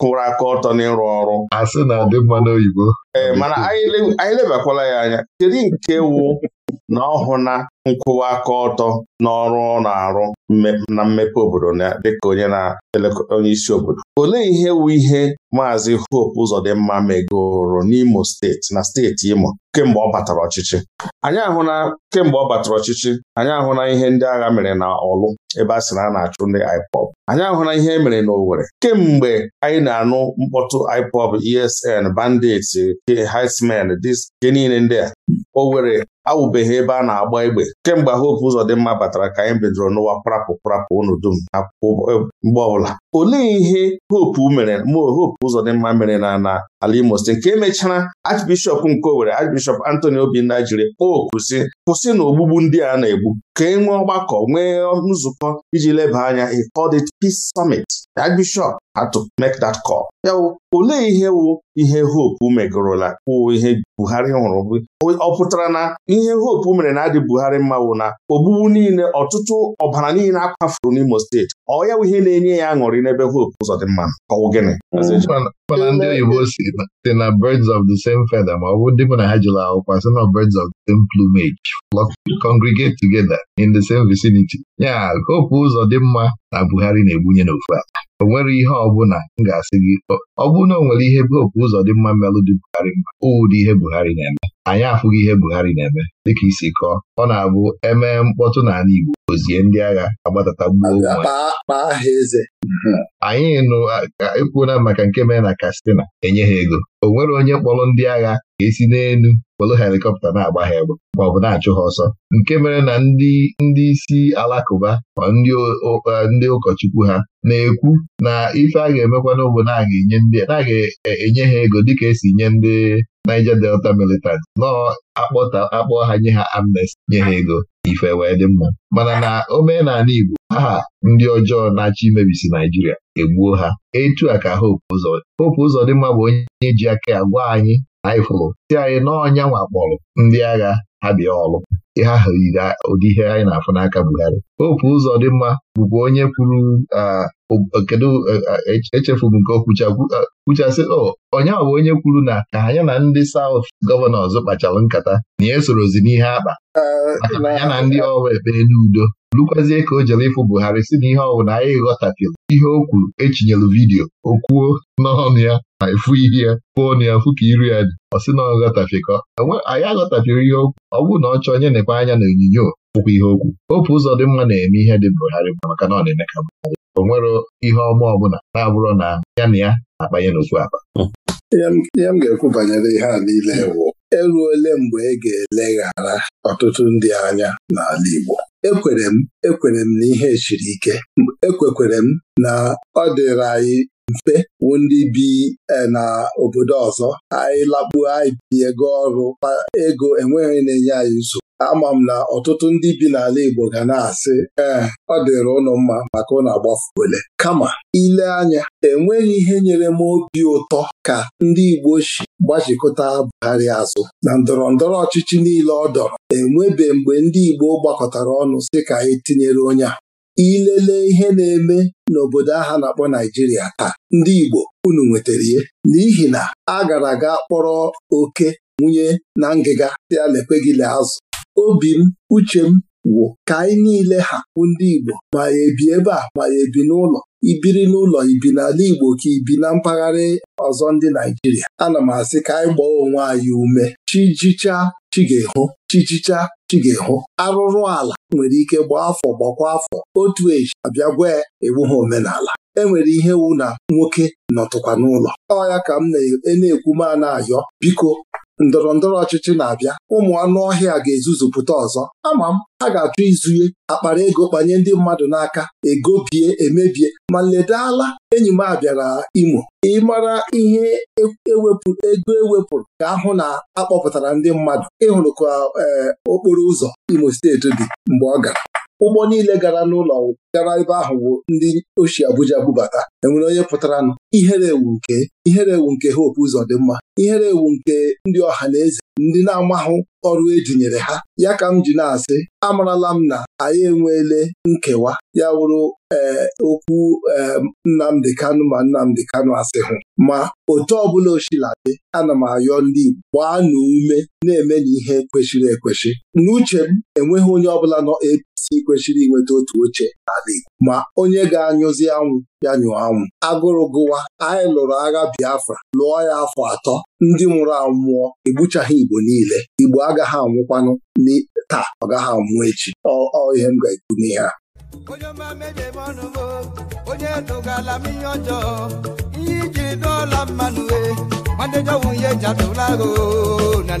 Speaker 2: kwụrụ aka ọtọ n'ịrụ ọrụ na adị mma n'oyibo. ee eh, mana anyị lebakwala ya anya kedu nke wụ na ọhụna nkwụwa aka ọtọ n'ọrụ ọ na-arụ na mmepe obodo dịka onye na-elekọta onye isi obodo olee ihe wu ihe maazị Hope Uzodimma megoro n'Imo steeti na steeti Imo kemgbe ọ batara ọchịchị anyị ahụla kemgbe ọ batara ọchịchị anyị ahụna ihe ndị agha mere na Ọlụ ebe a sị na a na-achụ ndị IPOB anyị ahụla ihe e na n'Owerri kemgbe anyị na-anụ mkpọtụ IPOB ESN bandits Herdsmen dị niile ndị a were awụbeghị ebe a na-agba egbe kemgbe Hope mma batara ka anyị bidoro n'ụwa prapụ prapụ unu dum akwụkwọ e, mgbe ọbụla olee ihe Hope mere mmụọ Hope mma mere na na ala Imo nke emechara Archbishop nke Owerri Archbishop Anthony Obinna jiri okwu si kwụsị na ogbugbu ndị a na-egbu ka e nwee ọgbakọ nwee nzukọ iji leba anya he called it peace summit that bishop had to make that call ya bụ olee ihe wu ihe hope megorola wụ ihe Buhari nwụrụ? ọ pụtara na ihe hope mere na adị Buhari mma wụ na ogbugbu niile ọtụtụ ọbara niile akwafuru n'Imo steeti ọ ya wụ ihe na-enye ya aṅụrị n'ebe hope ụzọ dị mma ọwụ gịnị
Speaker 1: mana ndị oyibo si na birds of the same feather ma ọ bụ ndị mụ na ha jụrụ akwụkwọ sị na birds of the same plumage congregate together in the same vicinity ya kopu ụzọ dị mma na Buhari na-egbunye n'ofu ala. o nwere ihe ọbụla m ga-asị gị ọ bụrụ na o nwere ihe kopu ụzọ dị mma mmelụ dị Buhari mma ụdị ihe Buhari na-eme anyị afụghị ihe Buhari na-eme dịka isi kọọ ọ na-abụ emee mkpọtụ n'ala Igbo ozie ndị agha agbatata gbuo anyị nụ ekwuola maka nke mere na Katsina enye ha ego o nwere onye kpọrọ ndị agha ga-esi n'elu kpọrọ helikọpta na-agba ha egbe ma ọ bụ na-achụ ha ọsọ nke mere na ndị isi alakụba ma ndị ụkọchukwu ha na-ekwu na ife a ga-emekwana bụ na a ga-enye ha ego dịka esi nye ndị Niger Delta militant nọọ akpọta akpọ ha nye ha amnesty nye ha ego ife wee dị mma mana na omenala Igbo aha ndị ọjọọ na-achọ imebisi Naijiria egbuo ha etu a ka Hope Uzodimma Hope Uzodimma bụ onye ji aka agwa anyị anyị fụrụ si anyị n'ọnya wakpọrọ ndị agha ha bịa ọlụ ha ha ụdị ihe anyị na-afụ n'aka Buhari opu ụzọ dị mma bụkwa onye kwuru kedu e, echefu m nke okwuchasị onye ahụ onye kwuru na ka anya na ndị South gọvanọs kpachara nkata na ya e esorozi n'ihe akpa maka na ya na ndị ọrụ ekpere n'udo lukwazie ka o jere ịfụ Buhari si na ihe ọwụ na anyị ghọtapịl ihe o kwuru echinyelu vidiyo o kwuo n'ọnụ ya ma efu ihe ya pụọ na ya fụ ka iru ya dị ọ sị na ọ ghọtafekọ e anyị aghọtafere ihe okwu ọ bụrụ na ọ chọọ onye nekwa anya na onyinyo pụkwa ihe okwu opu ụzọ dị mma na-eme ihe dị Buhari maka na ọ na-eme ka o nwere ihe ọma ọbụla na-abụrụ na ya na ya
Speaker 3: na-akpanye n'otu akpa ihe m ga-ekwu banyere ihe a niile bụ eruole mgbe ị ga-eleghara ọtụtụ ndị anya n'ala Igbo ekwere m ekwere m na ihe chiri ike ekwekwere m na ọ dịrị anyị mfe wụ ndị bi e, na obodo ọzọ anyị lakpuo anyị tinye ego ọrụ ego enweghị na-enye anyị nso. ama m na ọtụtụ ndị bi n'ala Igbo ga na-asị ee ọ dịrị ụnụ mma maka ụnụ agbafuole kama ile anya enweghị ihe nyere m obi ụtọ ka ndị Igbo si gbachikọta Buhari azụ na ndọrọ ndọrọ ọchịchị niile ọ dọrọ enwebe mgbe ndị Igbo gbakọtara ọnụ sị ka anyị e tinyere onye a ilele ihe na-eme n'obodo aha na-akpọ Naijiria taa ndị Igbo unu nwetara ihe n'ihi na a gara aga kpọrọ oke nwunye na ngịga tịa lekwe gị azụ obi m uche m wụ ka anyị niile ha bụ ndị Igbo ma ya ebi ebe a ma ya ebi n'ụlọ ibiri n'ụlọ ibi n'ala Igbo ka ibi na mpaghara ọzọ ndị Naijiria ana m asị ka anyị gbaa onwe anyị ume chijicha chi chijicha chi arụrụ ala nwere ike gbaa afọ gbakwa afọ otu eji abịa gwa ya e ha omenala enwere ihe wu na nwoke nọtụkwa n'ụlọ ọ ya ka m e na-ekwu ma ayọ biko ndọrọ ndọrọ ọchịchị na-abịa ụmụ anụ ọhịa ga-ezuzupụta ọzọ ama m ha ga-achọ izunye akpara ego kpanye ndị mmadụ n'aka ego egobie emebie ma ledala enyi m abịara Imo ịmara ihe e, ewepụrụ ego ewepụrụ ka ahụ na akpọpụtara ndị mmadụ ịhụrụ ka eh, okporo ụzọ Imo steeti dị mgbe ọ gara ụgbọ niile gara n'ụlọ gara ebe ahụ bụ ndị oshi Abuja bubata enwere onye pụtara nụ ihere ewu nke ihere ewu nke ha ụzọ dị mma ihere ewu nke ndị ọha na eze ndị na-amahụ ọrụ ejinyere ha ya ka m ji na-asị amarala m na anyị enweele nkewa ya wụrụ eh, okwu eh, Nnamdi Nnamdị Kanụ ma Nnamdị Kanụ hụ. ma otu ọbụla oshiladị ana m ayọ ndị Igbo gbaa na ume na-eme na ihe kwesịrị ekwesị n'uche m enweghị onye ọbụla nọ APC kwesịrị inweta otu oche n'ala Igbo ma onye ga-anyụzi anwụ ya nyụọ anwụ agụrụ gụwa anyị lụrụ agha Biafra lụọ ya afọ atọ ndị nwụrụ anwụọ egbuchaghị Igbo niile Igbo agaghị anwụkwanụ taa ọ gaghị anwụ echi ọ ihe m ga-ekwu n'ihe a ọnụ onye
Speaker 4: ọjọọ iji dọọla mmanụ e, na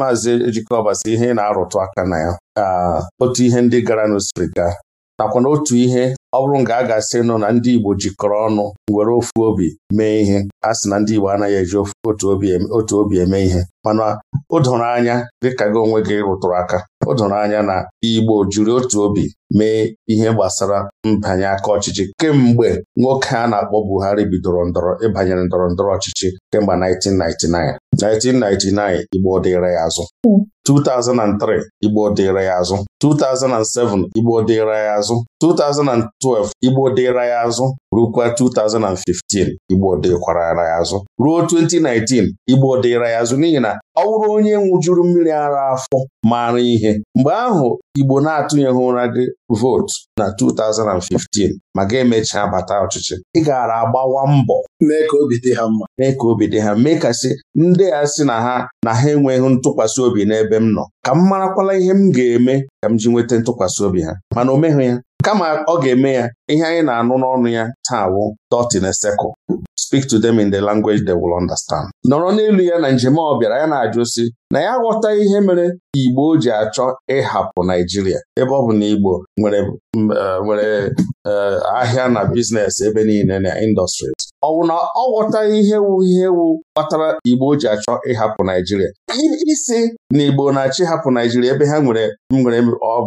Speaker 2: maazị Ejikọbasị ihe ị na-arụtụ aka na ya otu ihe ndị gara n'osiri ga nakwa na otu ihe ọ bụrụ nga a ga-asị nụ na ndị Igbo jikọrọ ọnụ were ofu obi mee ihe a sị na ndị Igbo anaghị eji otu obi eme ihe mana o doro anya dịka gị onwe gị rụtụrụ aka o doro anya na Igbo jiri otu obi mee ihe gbasara mbanye aka ọchịchị kemgbe nwoke a na-akpọ Buhari bidoro ndọrọ ịbanyere ndọrọ ndọrọ ọchịchị kemgbe 1999 1999 Igbo dịịrị ya azụ 2003 Igbo dịịrị ya azụ 2007 Igbo dịịrị ya azụ 2012 Igbo dịra ya azụ rukwa 2015 Igbo dịkwara ya azụ ruo 2019 Igbo dịra ya azụ n'ihi na ọ bụrụ onye nwụjuru mmiri ara afọ mara ihe mgbe ahụ Igbo na-atụnyeghị ụra gị vootu na 2015 ma ga-emechaa bata ọchịchị ị gara agbawa mbọ mee ka obi dị ha mma mee ka obi ha sị ndị a sị na ha na ha enweghị ntụkwasị obi n'ebe m nọ ka m marakwala ihe m ga-eme ka m ji nweta ntụkwasị obi ha mana o meghị ya kama ọ ga-eme ya ihe anyị na-anụ n'ọnụ ya taa awụ. dot in speak to them in the language they will understand. nọrọ n'elu ya na njem ọ bịara ya na-ajụ si na ya ghọta ihe mere Igbo ji achọ ịhapụ Naijiria ebe ọ bụ na Igbo nwere eh, eh, ahịa na biznes ebe niile na industries ọ bụ na ọ ghọtaghị ihe wu ihe wu kpatara Igbo ji achọ ịhapụ Naijiria isi na Igbo na-achọ ịhapụ Naijiria ebe ha nwere nwere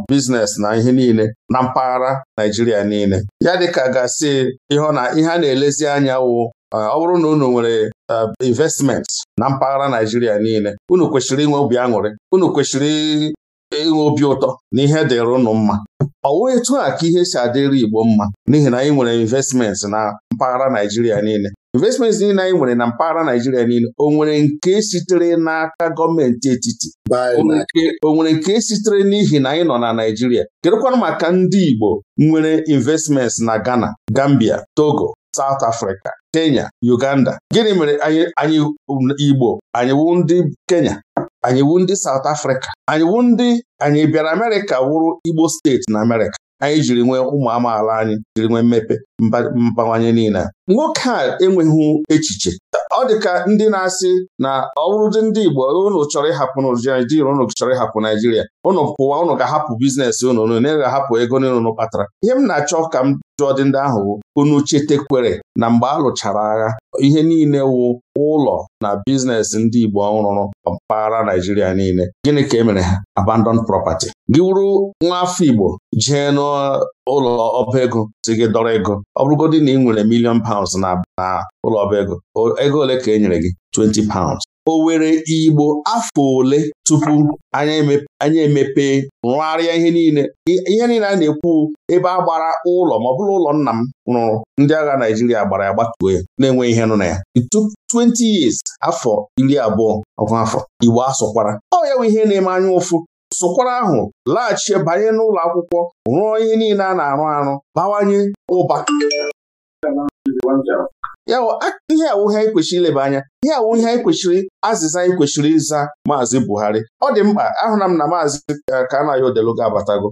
Speaker 2: biznes na ihe niile na mpaghara Naijiria niile ya dịka gasị ihe a na-elezi anya wụ ọ bụrụ na unu nwere investment na mpaghara Naijiria niile unu kwesịrị inwe obi aṅụrị unu kwesịrị enwe obi ụtọ na ihe dịrị ụnụ mma ọ wee etu a ka ihe si adịrị Igbo mma n'ihi na anyị nwere investments na mpaghara Naijiria niile investments niile anyị nwere na mpaghara Naijiria niile o nwere nke sitere n'aka gọọmenti etiti o nwere nke sitere n'ihi na anyị nọ na Naijiria kedụkwanụ maka ndị Igbo nwere investments na Ghana Gambia Togo South Africa Kenya Uganda gịnị mere anyị um, Igbo anyị wụ ndị Kenya anyị wu ndị South Africa anyị wu ndị anyị bịara Amerịka wụrụ Igbo steeti na Amerịka anyị jiri nwee ụmụ amaala anyị jiri nwee mmepe mbawanye niile nwoke a enweghị echiche ọ dị ka ndị na-asị na ọ bụrụdị ndị Igbo ụnụ chọrọ ịhapụ Naijiria ụnụ chọrọ ịhapụ Naijiria ụnụ pụwa ụnụ ga-ahapụ bizinesi ụnụ unu na-ahapụ ego niile unu kpatara ihe m na-achọ ka m jụọ dị ndị ahụ unu chetekwere na mgbe a lụchara agha ihe niile wụ ụlọ na biznes ndị Igbo ọhụrụ mpaghara Naijiria niile gịnị ka e mere ha abandon property gị wuru nwa afọ Igbo jee n'ụlọ ọba ego si gị dọrọ ego ọ bụrụgodị na ị nwere milion pounds na ụlọ ọba ego ego ole ka e nyere gị 20 pounds
Speaker 5: o were Igbo afọ
Speaker 2: ole tupu anyị emepe rụgharịa ihe niile ihe niile a na-ekwu ebe a gbara ụlọ ma ọ bụrụ ụlọ nna m rụrụ ndị agha Naijiria gbara ya gbatuo ya na-enweghị ihe nụ na ya 20 years afọ iri abụọ ọgụ afọ Igbo asụkwara ọ ya bụ ihe na-eme anya ụfụ sụkwara ahụ laghachi banye n'ụlọ akwụkwọ rụọ ihe niile a na-arụ arụ bawanye ụba ya ihe awụ anyị kwesịrị ileba anya ihe awụ ihe anyị kwesịrị azịza anyị kwesịrị ịza maazị Buhari ọ dị mkpa ahụna m na maazị eh, Kanayo Odeluga abatago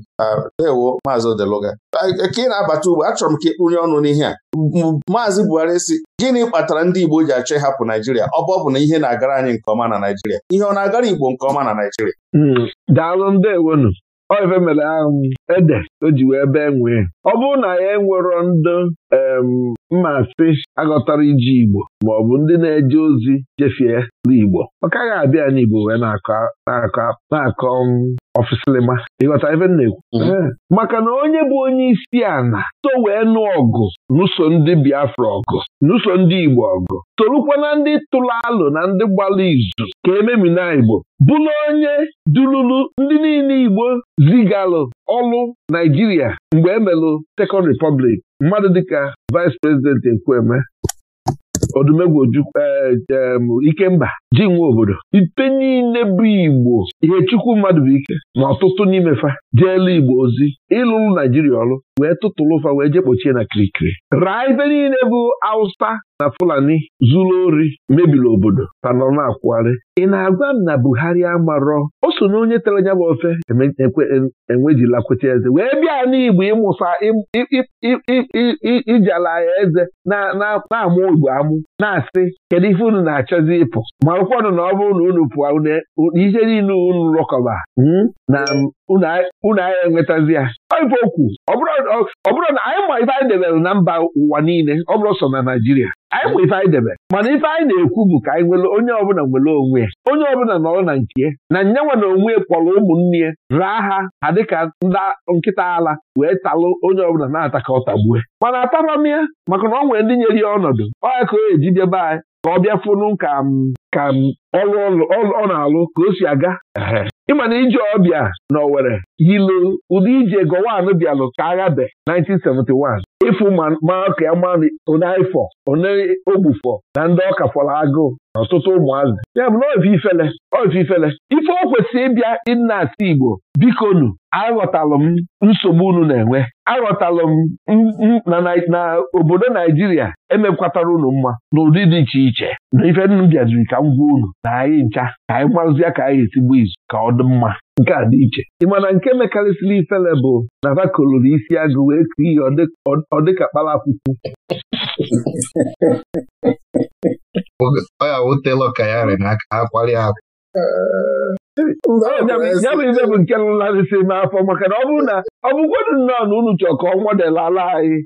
Speaker 2: ewo maazị Odeluga ka ị na-abata ugbo achọrọ m ka ịkpụnye ọnụ n'ihe a maazị Buhari si gịnị kpatara ndị Igbo ji achọ ịhapụ Naijiria ọ bụ na ihe na-agara anyị nke ọma na Naijiria ihe ọ na-agara Igbo nke ọma na Naijiria
Speaker 5: hmm, daalụ ndewonu Ọ ife mere ahụ ede o ji wee bee nwee ọ bụrụ na ya e enwero mma sị aghọtara iji Igbo ma ọ bụ ndị na-eje ozi jefie n'Igbo ọ kaghị abịa n'Igbo wee na-akọ um, ọfịsịlịma ịghọta ebe m na-ekwu mhm. eh, maka na onye bụ onye isi ala so wee nụ ọgụ n'ụso ndị Biafra ọgụ n'ụso ndị Igbo ọgụ sorukwa na ndị tụrụ alụ na ndị gbara izu ka ememina Igbo bụla onye dululu ndị niile Igbo zigalụ ọlụ Naijiria mgbe emelụ Second Republic mmadụ dịka vice prezidenti Nkweme Odumegwu Ojukwu e, e, Ikemba ji nwe obodo ite niile bụ Igbo ihe chukwu mmadụ bụ ike na ọtụtụ n'imefa Jeelu Igbo ozi ịlụlụ Naijiria ọrụ wee tụtụlụ fa wee jee kpochie na kirikiri raa ife niile bụ Awụsa na Fulani zuru ori mebiri obodo tanọ na-akwụgharị ị na-agwa m na Buhari amarọ o so na onye tere anya bụ ofe enwejila kweta eze wee bịa n'Igbo ịmụsa ijala ya eze na-amụ Igbo amụ ụ na-asị kedu ife unu na-achọzi ịpụ marụkwanụ na ọ bụrụ na unu pụọ e, ihe niile unu rọkọba hmm, na unu anyị enwetazi ya ife okwu ọ bụrụ na anyị ma ife anyị debere na mba ụwa niile ọ bụrụ sọ na Naịjirịa anyị ma ife anyị debere mana ife anyị na-ekwu bụ ka anyị nwere onye ọbụla nwere onwe ya onye ọbụla nọrọ na nke na nyenwe na onwe kpọrọ ụmụnne ya raa ha ha dịka ndị nkịta ala wee talụ onye ọbụla na-ata ka ọ tagbue mana atabam ya maka na ọ nwere ndị nyere ya ọnọdụ ọ ya ka o eji jebe anyị ka ọ bịa ka ọrụ ọ na-alụ ka o si aga ịma na ije ọbịa na Owerri yilu ụdị ije Gowon bịalụ ka aghabe 1971 ịfụ maa ka ya maa onaifọ na ndị ọka fọrọ agụụ na ọtụtụ ụmụazị ya bụ na ifele ifele ife o kwesịrị ịbịa nna asị Igbo bikonu aghọtalụ m nsogbu unu na-enwe arọtalụ m na obodo Naijiria emekwatara unu mma n'ụdị dị iche iche na ife nnu bịaziri ka m gwa unu na anyị ncha ka anyị marazia ka anyị esigbu izu ka ọ dị mma nke a dị iche ị mana nke mekarịsịrị ifele bụ na ha koloro isi agụ wee kụọ ihe ọ dịka kpala akwụkwọ <laughs> ọ ya awụtela ọka ya rị ya bụ ibe bụ nke nlarịsị m afọ maka na ọ bụrụ na ọ bụkwado nnọọ na unu chọọ ka ọ nwadelala anyị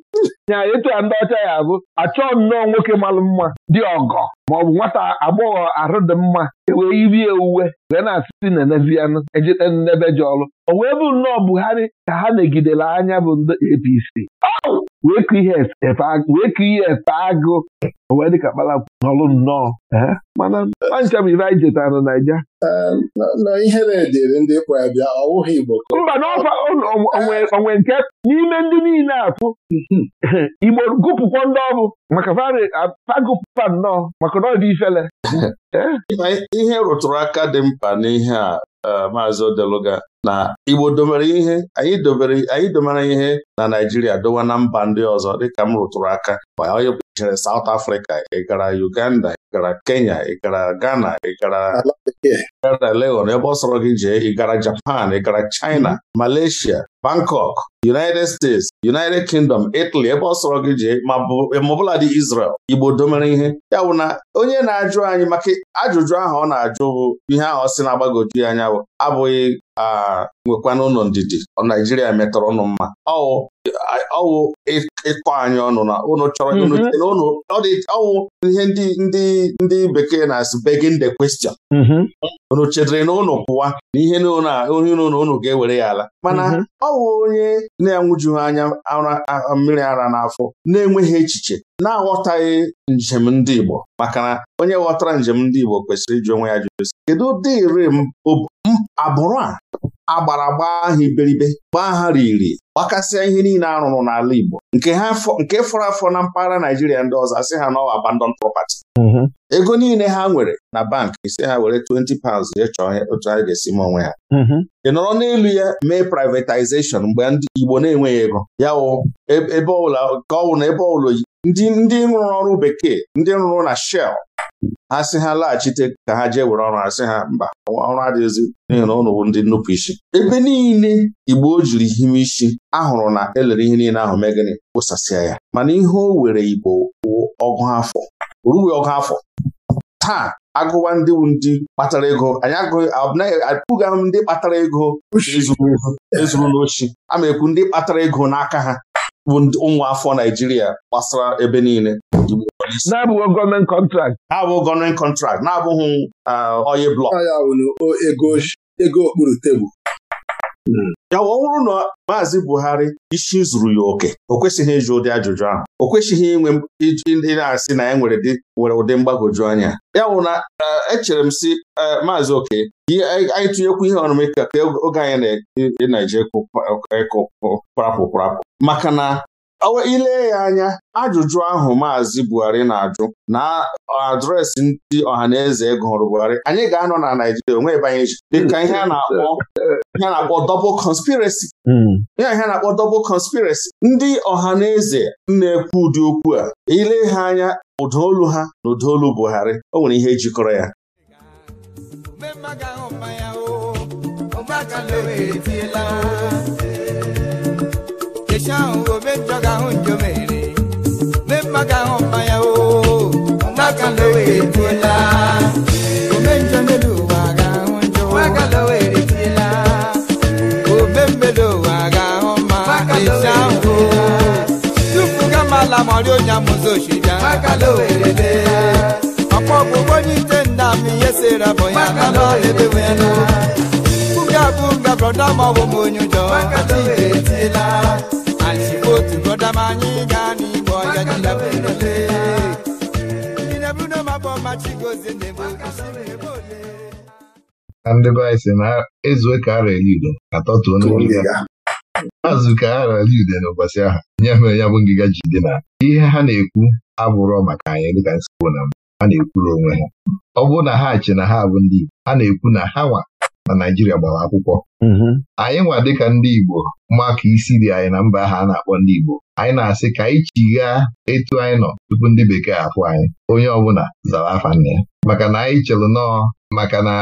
Speaker 5: nya <laughs> etu a ndị ọcha ya abụ achọọ nnọọ nwoke malụ mma dị ọgọ ma ọ bụ nwata agbọghọ arụ dị mma ewee irie uwe wee na-asị na-enezianụ ejite n'ebe ji ọrụ o wee bụ nnọọ Buhari ka ha megidere anya bụ ndị APC wee ka ihe efe agụ wee dịka kpara n'ọrụ nnọọ mana ancha m ife anyị jetara na Naija mba n'onwe nke n'ime ndị niile afụ hmm, hmm. Igbo gụpụkwa ndị ọrụ maka fagụpụpa nnọọ maka ifele
Speaker 2: <laughs> ihe rụtụrụ aka dị mkpa n'ihe a e, maazị Odeluga na Igbo dobere ihe anyị dobere domere ihe na Naijiria dowa na mba ndị ọzọ dịka m rụtụrụ aka onye jere South Africa ị gara Uganda ị gara Kenya ị gara Ghana ị gara Legon ebe ọ sọrọ gị jee ị gara Japan ị gara China Malaysia Bangkok United States United Kingdom Italy ebe ọ sọrọ gị jee ma ọbụla dị Israel Igbo domere ihe ya bụ na onye na-ajụ anyị maka ajụjụ ahụ ọ na-ajụ bụ ihe ahụ ọ sị na-agbagoju ya anya abụghị nwekwana ụlọ ndidi Naijiria metọrọ ụnụ mma ọwụ ịkọ anyị ọnụ na ụnụ chọrọ mhm. ọwụ ihe ndị bekee na-asị begin the question unu mhm. chedere na ụnụ pụwa na ihe na ụnụ ga-ewere ya ala mana mhm.
Speaker 3: ọ ọwụ onye
Speaker 2: na-enwuju anya mmiri ara n'afọ na-enweghị echiche na-aghọtaghị njem ndị Igbo maka na onye ghọtara njem ndị Igbo kwesịrị iji onwe ya jụrụ kedu ụdị iri agbụrụ a agbara gbaa ha iberibe gbaa ha riri gbakasịa ihe niile arụrụ n'ala Igbo nke fọrọ afọ na mpaghara Naijiria ndị ọzọ asị ha n'ọwa abandon property mm-hmm. ego niile ha nwere na bank isi ha were 20 pounds jee chọọ otu ha ga-esi m onwe ha mm-hmm. ị nọrọ n'elu ya mee privatization mgbe ndị Igbo na-enweghị ego ya e, ebe ọbụla ka ọ bụ na ebe ọbụla ndị rụrụ ọrụ bekee ndị rụrụ na Shell a sị ha laghachite ka ha jee were ọrụ asị ha mba ọrụ adịghịzi n'ihi na ụnụ ndị nnupụ isi ebe niile igbo o jiri hime isi ahụrụ na elere ihe niile ahụ mee gịnị kpụsasịa ya mana ihe o were igbo ọgụ afọ orughị ọgụ afọ taa agụwa ndị ndị kpatara ego anyị apụghị ahụ ndị kpatara ego ezuru n'ochi ama ekwu ndị kpatara ego n'aka ha bụ ụmụ afọ Naijiria gbasara ebe niile igbo na-abụghị gọọmenti kọntrakt abụghị gọọmenti kọntrakt na-abụghị oyi blọk
Speaker 3: ego okpuru tebụl ya ọ bụrụ na maazị
Speaker 2: Buhari isi zuru ya oke o kwesịghị ịjụ ụdị ajụjụ ahụ o kwesịghị inwe ndị na-asị na ya nwere nwere ụdị mgbagoju anya ya bụ na echere m si maazị Oke anyị tụnyekwu ihe ọnụme ka oge anyị na-eji na-eje kụkparapụ maka na ilee ya anya ajụjụ ahụ Maazị Buhari na-ajụ na adreesị ndị ọhaneze e gụrụ Buhari anyị ga-anọ na Naijiria onwe ebe anyị ji dịka ihe a na-akpọ double conspiracy ya hmm. ihe a na-akpọ double conspiracy ndị ọhaneze na-ekwu ụdị okwu a ile ha anya ụdọ olu ha na ụda olu Buhari o nwere ihe jikọrọ ya
Speaker 4: ahụ omejọ ga-ahụ njo mere mee ahụ mma ndị be
Speaker 1: anyị si na ezue ka ara eli udo atọtuo azụ ka ara n'ụbọchị ahụ nye mere ya bụ ngịga jide na ihe ha na-ekwu abụrọ maka anyị dịka nsogbu na ha na-ekwuru onwe ha ọ bụrụ na ha chi na ha bụ ndị Igbo ha na-ekwu na ha nwa na Naijiria gbara akwụkwọ mm-hmm. anyị nwa dịka ndị Igbo maka isi dị anyị na mba ahụ a na-akpọ ndị Igbo anyị na-asị ka anyị chigha etu anyị nọ tupu ndị bekee afụ anyị onye ọbụla zara afa nne ya maka na anyị chelụ nọọ maka na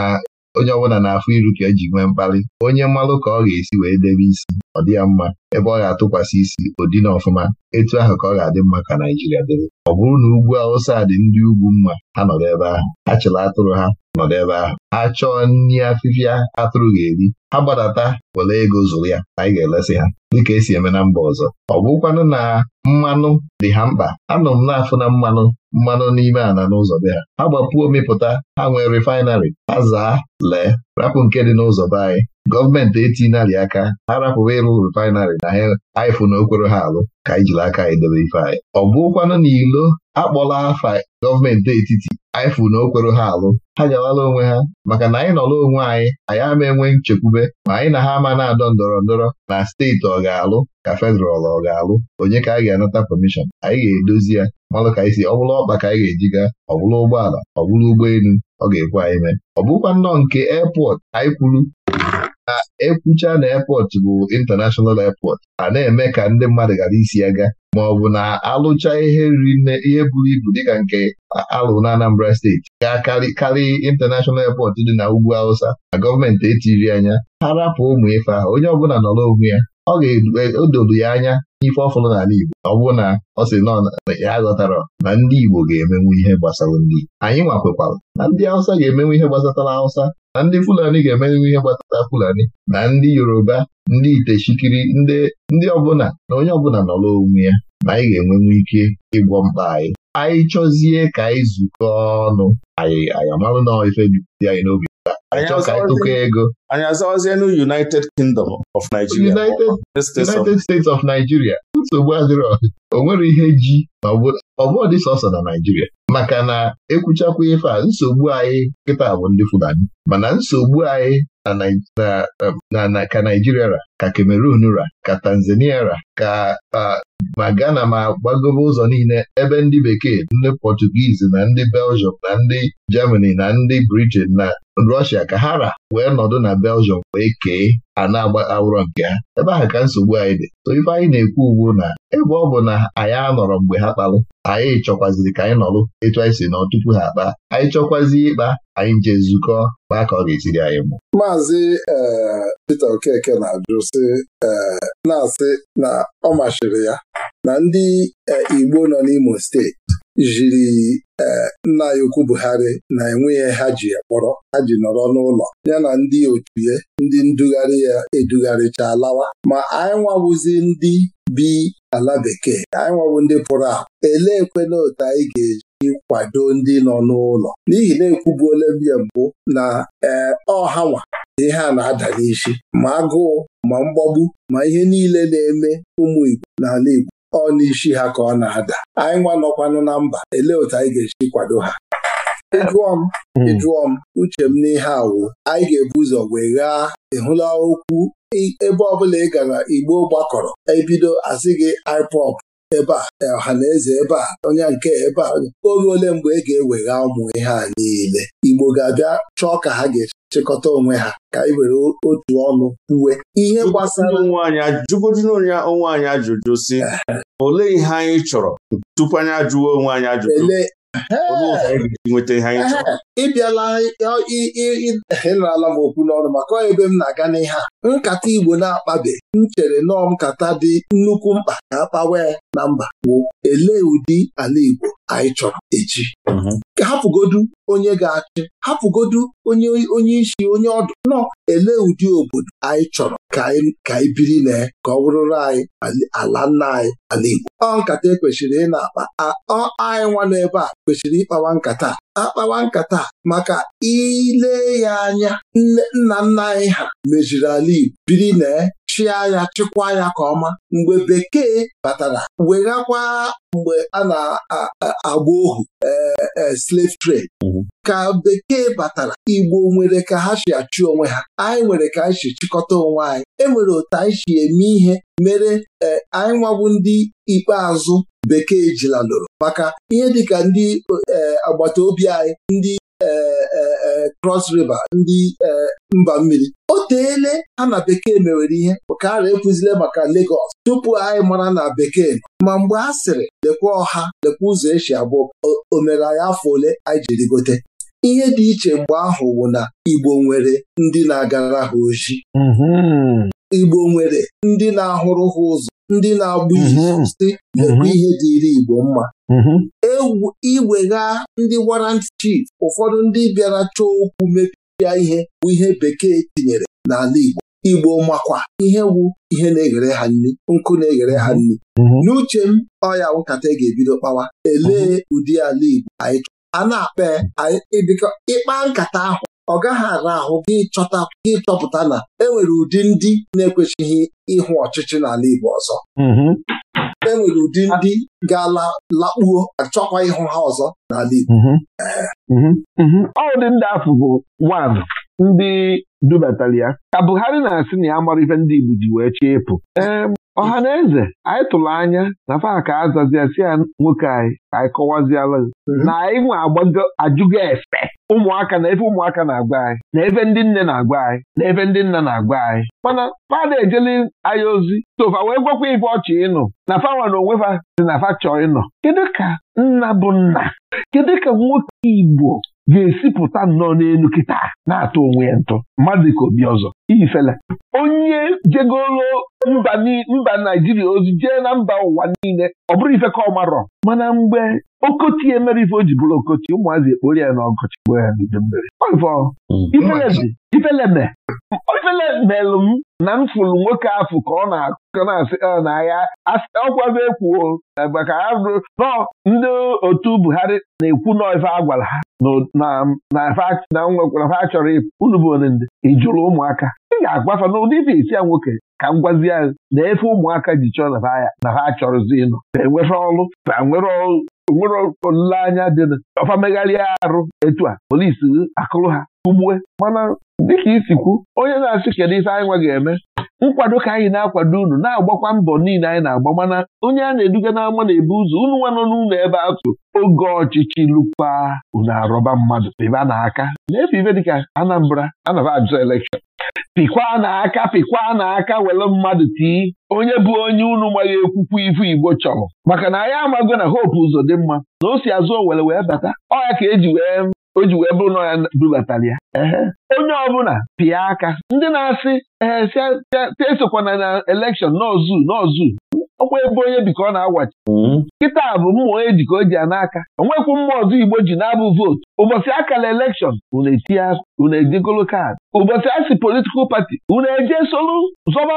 Speaker 1: onye ọbụla na-afụ iru ka eji nwee mkpali onye mmalụ ka ọ ga-esi wee debe isi ọ dị ya mma ebe ọ ga-atụkwasị isi ụdị na ọfụma etu ahụ ka ọ ga-adị mma ka Naijiria dịrị ọ bụrụ na ugwu Awụsa dị ndị ugwu mma ha nọdụ ebe ahụ ha chịrị atụrụ ha nọdụ ebe ahụ Achọọ chọọ nri afịfịa atụrụ ga-eri ha gbadata were ego zụrụ ya anyị ga-elesi ha dịka esi eme na mba ọzọ ọ bụkwanụ na mmanụ dị ha mkpa anọ m na-afụ na mmanụ mmanụ n'ime ala n'ụzọ be ha ha gbapụo mịpụta ha nwee refaịnarị, ha zaa lee rapụ nke dị n'ụzọ be anyị gọọmenti etinyelị aka ha rapụba ịrụ refaịnarị na ha anyịfụ na okwere ha alụ ka anyị jiri aka anyị ife anyị ọ bụrụkwanụ na ilo akpọla afa gọọmenti etiti anyịfụ na okwere ha alụ ha jawala onwe ha maka na anyị nọrọ onwe anyị anyị ama enwe nchekwube ma anyị na ha ama na-adọ ndọrọ ndọrọ na steeti ọ ga-alụ ka federal ọ ga-alụ onye ka anyị ga-anata permission anyị ga-edozi ya malụ ka anyịsi si ọ bụla ọkpa ka anyị ga-eji gaa ọ bụla ụgbọala ọ bụla ụgbọelu ọ ga-ekwe anyị mee ọ bụkwa nnọọ nke airport anyị kwuru na ekwucha na airport bụ international airport a na-eme ka ndị mmadụ gara isi ya ga ma ọ bụ na alụcha ihe riri ihe buru ibu dịka nke alụ na Anambra steeti ga-akarị international airport dị na ugwu Hausa na gọọmenti etiri anya ha rapụ ụmụ ife ahụ onye ọbụla nọrọ onwe ya ọ ga-edodo e, ya anya n'ife ọfụrụ n'ala Igbo ọ bụrụ na ọ sị nọ ya ghọtara na ndị Igbo ga-emenwu ihe gbasara ndị Anyị nwakwekwara na ndị Hausa ga-emenwu ihe gbasatara Hausa na ndị Fulani ga-emerịrị ihe gbasara Fulani na ndị Yoruba ndị Itechikiri ndị ọbụla na onye ọbụla nọrọ n'onwe ya na anyị ga-enwenwu ike ịgwọ mkpa anyị anyị chọzie ka anyị zukọ ọnụ anyị anyị amalụ na ife dị anyị n'obi anyị chọọ ego anyị azawazie na United Kingdom of Nigeria United States of Nigeria nsogbu adịrọ o nwere ihe ji ọbụọ dị sọsọ na Naijiria maka na ekwuchakwa ife a nsogbu anyị Nkịta bụ ndị Fulani mana nsogbu anyị na um, ka Naijiria ra ka Cameroon ra ka Tanzania ra ka ma Ghana ma gbagobe ụzọ niile ebe ndị bekee ndị Pọtugiizi na ndị Belgium na ndị Germany na ndị Britain na Russia ka ha ra wee nọdụ na Belgium wee kee ana na-agba awụrọ nke ha ebe ahụ ka nsogbu anyị dị so ife anyị na-ekwu ugbu na ebe ọ bụ na anyị anọrọ mgbe ha kpalụ anyị chọkwaziri ka anyị nọrụ etu anyị si nọ tupu ha kpaa anyị chọkwazi ịkpa anyị je zukọ kpaa ka ọ ga-esiri anyị mụ
Speaker 3: Maazị eh, Peter Okeke na-ajụ sị eh, na-asị na ọ masịrị ya na ndị e, Igbo nọ n'Imo steeti jiri e, nna ya ukwu Buhari na enweghị ha ji kpọrọ ha ji nọrọ n'ụlọ ya na ndị otuye ndị ndugharị ya edugharịcha alawa ma anyị nwawụzi ndị bi ala bekee anyị nwawụ ndị pụrụ ahụ eleekwela otu anyị ga-eji kwado ndị nọ n'ụlọ n'ihi na ekwubuola mbụ na ee ọhanwa ihe a na-ada n'isi ma agụụ ma mgbagbu ma ihe niile na-eme ụmụ Igbo n'ala Igbo ọ n'isi ha ka ọ na-ada anyị nwa nọkwanụ na mba elee otu anyị ga-esi kwado ha ịjụọ m ịjụọ hmm. m uche m n'ihe awụ anyị ga-ebu ụzọ wee ghaa ịhụla okwu ebe ọbụla ị gara Igbo gbakọrọ ebido asị gị IPOB ebe a ọha e, na eze ebe a onye nke ebe a oge ole mgbe ị e ga-ewegha ụmụ ihe a niile Igbo ga-abịa chọọ ka ha ga-esi chịkọta onwe ha ka anyị were otu ọnụ uwe ihe gbasara jụgodinonye onwe anyị
Speaker 2: ajụjụ si eh. olee ihe anyị chọrọ tupu anyị ajụwa onwe anyị ajụjụ eh. nweta ihe
Speaker 3: anyị chọrọ eh, ịbịala ịnarala m okwu n'ọrụ maka ebe m na-aga n'ihe a nkata Igbo na-akpabe m chere nọọ nkata dị nnukwu mkpa ka akpawe na mba wụ. elee ụdị ala Igbo anyị chọrọ echi mm-hmm. hapụgodu onye ga-achị hapụgodu onye onye isi onye ọdụ nọ ele ụdị obodo anyị chọrọ ka anyị biri na ka ọ bụrụrụ anyị ala nna anyị ala Igbo ọ nkata ekwesịrị ị na-akpa anyị nwa n'ebe a kwesịrị ịkpawa nkata akpawa nkata maka ile ya anya nna nna anyị ha meziri ala Igbo biri na chịa ya chịkwa ya ka ọma mgbe bekee batara weghakwa mgbe a na-agba ohu e, e, slave trade mhm. ka bekee batara igbo nwere ka ha si achụ onwe ha anyị nwere ka anyị si chịkọta onwe anyị enwere otu anyị si eme ihe mere e, anyị nwabụ ndị ikpeazụ bekee jilalụrụ maka ihe dịka ndị agbata obi anyị ndị E, e, e, Cross River ndị mba mmiri o teele ha na bekee mewere ihe ka ahụ ekwuzile maka Lagos tupu anyị mara na bekee ma mgbe a sịrị lekwa ọha lekwa ụzọ esi abụ o mere anyị afọ ole anyị jiri gote ihe dị iche mgbe ahụ bụ na Igbo nwere ndị na-agara ha ojii mm-hmm. Igbo nwere ndị na-ahụrụ ha ụzọ ndị na abụghị izu mhm. si mhm. ihe dịịrị Igbo mma mhm. iwegha ndị warrant chief ụfọdụ ndị bịara chọọ okwu mepia ihe bụ ihe bekee tinyere n'ala Igbo Igbo makwa ihe wu ihe na-eghere ha nri nkụ na-eghere ha nri n'uche m ọya nkata e ga-ebido kpawa elee ụdị ala Igbo anyị chọrọ a na-akpa ịkpa nkata ahụ ọ gaghị ara ahụ gị chọta gị chọpụta na enwere ụdị ndị na-ekwesịghị ịhụ ọchịchị n'ala Igbo ọzọ mm-hmm. e nwere ụdị ndị ga la lakpuo achọkwa ịhụ ha ọzọ n'ala Igbo mm-hmm.
Speaker 5: Mm-hmm. ọ ndị ahụ bụ nwaanyị ndị dubatara ya ka Buhari na-asị na ya ife ndị Igbo ji wee chie ịpụ ọha na eze anyị tụrụ anya na faka azazia si ya nwoke anyị ka anyị kọwaziala mhm. na anyị nwe ajụgo efe ụmụaka na ebe ụmụaka na-agwa anyị na ebe ndị nne na-agwa anyị na ebe ndị nna na-agwa anyị mana fada ejeli anyị ozi tova wee gwakwa ibe ọchị ịnụ na fawa na onwe fa si na fa chọọ ịnọ kedu ka nna bụ nna kedu ka nwoke Igbo ga-esipụta nnọọ n'elu kịta na-atụ onwe ya ntụ mmadụ ka obi ọzọ ifele onye jegoro mba naijiria ozi jee na mba ụwa niile ọ bụrụ ife ka ọ marọ mana mgbe okoti emere ife o ji bụrụ okoti ụmụazị ekpori ya n'ọgọchị mm. ifeleme m na m fụrụ nwoke afụ ka ọ na-akọ na-asị ah, n'ahịa ọkwago ekwuo maka ha nọ ndị otu Buhari na-ekwu n'ife a gwara ha na nwekwara ha chọrọ unu bụ onende ịjụrụ ụmụaka ị ga-agbafa n'ụdị ife isi ya nwoke ka m gwazi ya na-efe ụmụaka ji chọọ na ha achọrọzi ịnọ enwere ọrụ nwere nwere olileanya dị ọfa megharịa arụ etu a polisi akụrụ ha ugbue mana dịka isikwu onye na-asị kedu ife anyị nwa ga-eme nkwado ka anyị na-akwado unu na-agbakwa mbọ niile anyị na-agba mana onye a na-eduga n'ama na-ebu ụzọ unu nwa nọ n'ụlọ ebe atụ oge ọchịchị lụkwa unu arọba mmadụ ebe a na-aka na-efe ife dịka Anambra anaba ajụ elekshọn pịkwa n'aka pịkwa n'aka were mmadụ tii onye bụ onye unu maghị ekwukwu ifu Igbo chọrọ maka na anyị amago na hope ụzọ dị mma na o si azụ owere wee bata ọ ya ka eji wee o ji wee bụrụ na ya dulatara ya onye ọbụla pịa aka ndị na-asị ee esokwana na elekshọn n'ozu n'ozu ọkwa ebe onye bi ka ọ na-agwachi hmm. kịta bụ mmụọ eji ka o ji ya n'aka onwekwu mmụọ ọzọ Igbo ji na-abụ vootu ụbọchị akara elekshọn unu etinye kaadị ụbọchị asị politikal pati unu eje solu zọba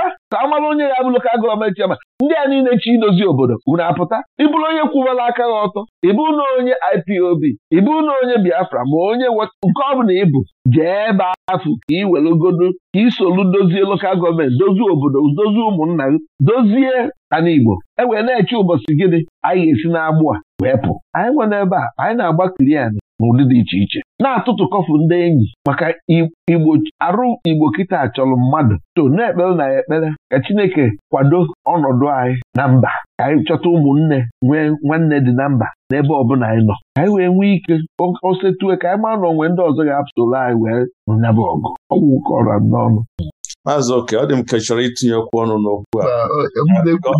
Speaker 5: ka ka amara onye ya abụ lokal gọọmenti ama ndị a niile chi idozi obodo unu apụta ịbụrụ onye kwụwara aka gị ọtọ ịbụ na onye IPOB ịbụ na onye Biafra ma onye nke ọ ịbụ jee ebe afụ ka ị welugodo ka isolu dozie lokal gọọmenti dozie obodo dozie ụmụnna gị dozie ana e wee na-eche ụbọchị gịnị anyị ga-esi n'agbụ a wee pụ anyị nwere ebe a anyị na-agbakiri anyị n'ụdị dị iche iche na-atụtụ kọfụ ndị enyi maka igbo arụ igbo kịta chọrọ mmadụ to na-ekpere na ekpere ka Chineke kwado ọnọdụ anyị na mba ka anyị chọta ụmụnne nwee nwanne dị na mba n'ebe ọbụla anyị nọ ka anyị wee nwee ike osetue ka anyị maa na onwe ndị ọzọ ga-apụtụrụ anyị wee nyaba ọgụ ọgwụ kọrọ n'ọnụ
Speaker 2: maazị oke ọ dị m ka chọrọ itinye okwu ọnụ n'okwu a
Speaker 5: maka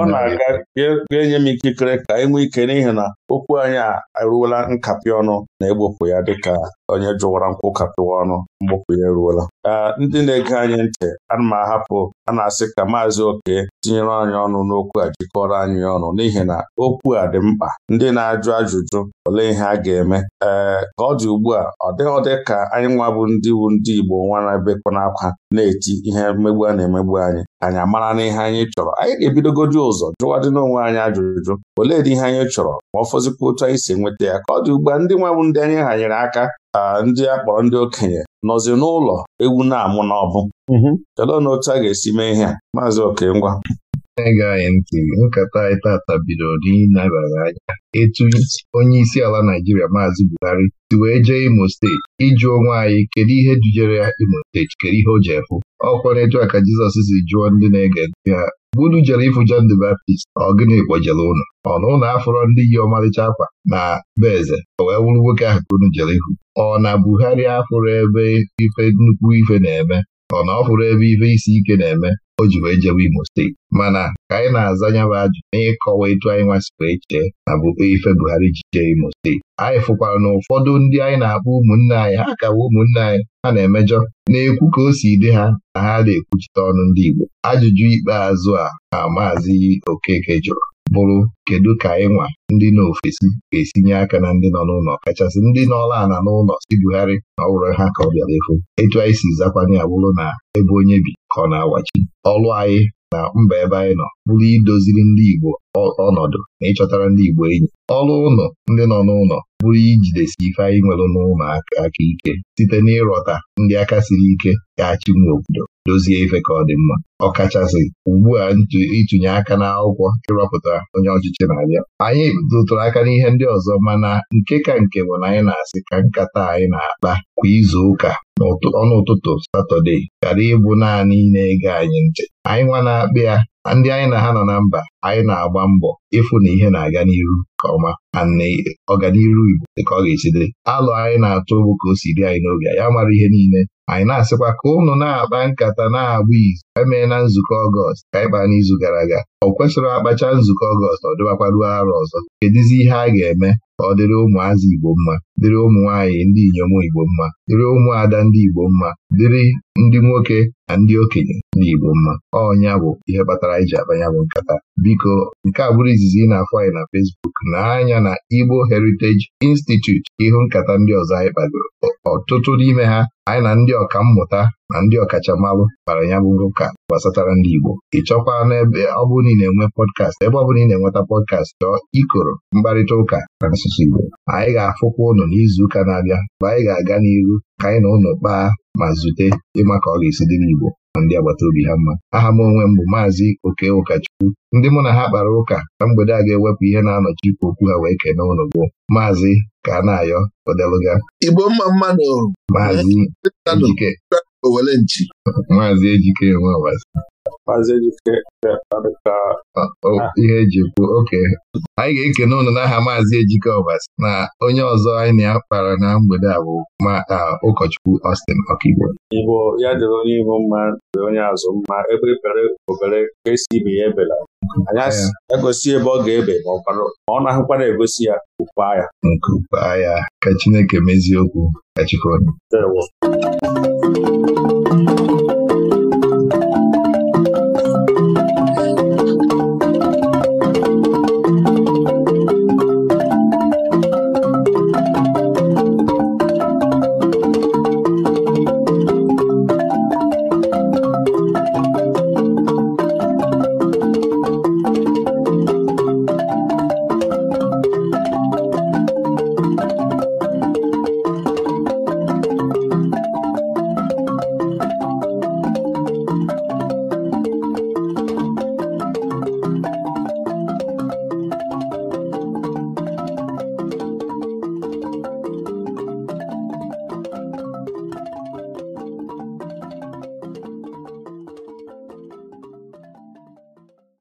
Speaker 1: ọ na-aga
Speaker 2: ga-enye m ikikere ka e nwee ike n'ihi na okwu anyị a eruola nkapị ọnụ na-egbopụ ya dịka onye jụwara nkwụ kapịwa ọnụ mgbopụ ya eruola ndị na-ege anyị ntị ana m ahapụ a na-asị ka maazị oke tinyere anyị ọnụ n'okwu a jikọrọ anyị ọnụ n'ihi na okwu a dị mkpa ndị na-ajụ ajụjụ olee ihe a ga-eme ee ka ọ dị ugbu a ọ dịghị dị ka anyị nwabụ ndị wu ndị Igbo nwarabekọ n'akwa na-eti ihe mmegbu a na-emegbu anyị anyị amara n'ihe anyị chọrọ anyị ga-ebidogodi ụzọ jụwadị n'onwe anyị ajụjụ ole dị ihe anyị chọrọ ma ọ fọzikwa otu anyị si enweta ya ka ọ dị ugbu a ndị nwabụ ndị anyị hanyere aka ndị a kpọrọ ndị okenye nọzi n'ụlọ ewu na-amụ n'ọbụ kedu na otu a ga-esi mee ihe a maazị
Speaker 1: Okengwa na-ege anyị ntị nkata anyị tata bidoro n'ịnabara anya etu onye isi ala Naijiria Maazị Buhari si wee jee Imo steeti ịjụ onwe anyị kedu ihe dujere ya Imo steeti kedu ihe o ji efu? ọkwa n'etu a ka Jizọs si jụọ ndị na-ege ntị ha unu jere ịfụ John the Baptist ọ gịnị kpojere ụnụ ọ na ụlọ afọrọ ndị yi ọmalịcha akwa na be eze o wee wụrụ nwoke ahụ ka unu jere ihu ọ na Buhari afụrụ ebe ife nnukwu ife na-eme Ọ na ọ bụrụ ebe ibe isi ike na-eme o ji wee jewe Imo steeti mana ka anyị na-aza nyaba ajụ na ịkọwa etu anyị nwasị wee chee na bụ ife Buhari ji jee Imo steeti anyị fụkwara na ụfọdụ ndị anyị na-akpọ ụmụnne anyị ha kawa ụmụnne anyị ha na-emejọ na-ekwu ka o si dị ha na ha na-ekwuchite ọnụ ndị Igbo ajụjụ ikpeazụ a ha maazị Okeke jụrụ bụrụ kedu ka ịnwa ndị nọ ofesi ga-esinye aka na ndị nọ n'ụlọ kachasị ndị nọọla ana n'ụlọ si bugharị na ọ ha ka ọ bịara efu etu anyị si zakwanye abụrụ na ebe onye bi ka ọ na-awachi ọlụ anyị na mba ebe anyị nọ bụrụ idoziri ndị Igbo ọnọdụ na ịchọtara ndị Igbo enyi ọrụ ụlọ ndị nọ n'ụlọ bụrụ ijidesi ife anyị nwere n'ụlọ aka ike site n'ịrọta ndị aka siri ike ga-achị obodo dozie ife ka ọ dị mma ọkachasị ugbu a ịtụnye aka n'akwụkwọ ịrọpụta onye ọchịchị na-abịa anyị tụtụrụ aka n'ihe ndị ọzọ mana nke ka nke bụ na anyị na-asị ka nkata anyị na-akpa kwa izu ụka ọnụ ụtụtụ satọde ghara ịbụ naanị na-ege anyị ntị anyị nwa na-akpa ya ndị anyị na ha nọ na mba anyị na-agba mbọ ịfụ na ihe na-aga n'iru nke ọma na ọganiru Igbo dịka ọ ga-esi dị alụ anyị na-atụ bụ ka o si dị anyị n'oge ya mara ihe niile anyị na-asịkwa ka ụnụ na-akpa nkata na-agba izu emee na nzukọ ọgọst ka anyị kpaa n'izu gara aga ọ kwesịrị akpacha nzukọ ọgọst ọ ruo arọ ọzọ kedizi ihe a ga-eme ka ọ dịrị ụmụazị Igbo mma dịrị ụmụ nwaanyị ndị inyom Igbo mma dịrị ụmụada ndị Igbo mma dịrị ndị nwoke na ndị okenye ndị Igbo mma ọnya bụ ihe kpatara anyị ji bụ nkata biko nke a bụrụ izizi ị na-afọ anyị na fesbuk na anya na Igbo Heritage institut ihu nkata ndị ọzọ anyị kpagoro ọtụtụ n'ime ha anyị na ndị ọka mmụta na ndị ọkachamalụ kpara ya bụ ụka gbasatara ndị Igbo ị chọkwa n'ebe ọ na ị na-enwe pọdkast ebe ọ ị na-enweta pọdkast chọọ ikoro mkparịta ụka na asụsụ Igbo anyị ga-afụkwa ụnụ n'izu ụka na-abịa mgbe anyị ga-aga n'iru ka anyị na ụnụ kpaa ma zute ịma ka ọ ga-esi dị n'Igbo na ndị agbata obi ha mma aha m onwe m bụ maazị oke ụkọchukwu ndị mụ na ha kpara ụka na mgbede a ga-ewepụ ihe na-anọchi ikwu okwu ha wee kene ụnụ bụ maazị ka na-ayọ odeluga
Speaker 5: Igbo mma mmadụ
Speaker 1: maazị ejike maazị ejike maazị Ejike ka ah. ihe eji kwuo oke anyị ga-ekene ụnụ n'aha maazị Ejike Ọbasi na onye ọzọ anyị na akpara na mgbede a bụ ma ụkọchukwu Austin Ọkigbo
Speaker 2: Igbo ya dịrị onye ihu mma dị onye azụ mma ebe bere e obere ka esi ibe ya ebela anyị egosi ebe ọ ga-ebe ma ọ na-ahụkwara egosi ya
Speaker 1: ukwaa agha. nke ukwaa agha ka Chineke mezie okwu ka Chukwu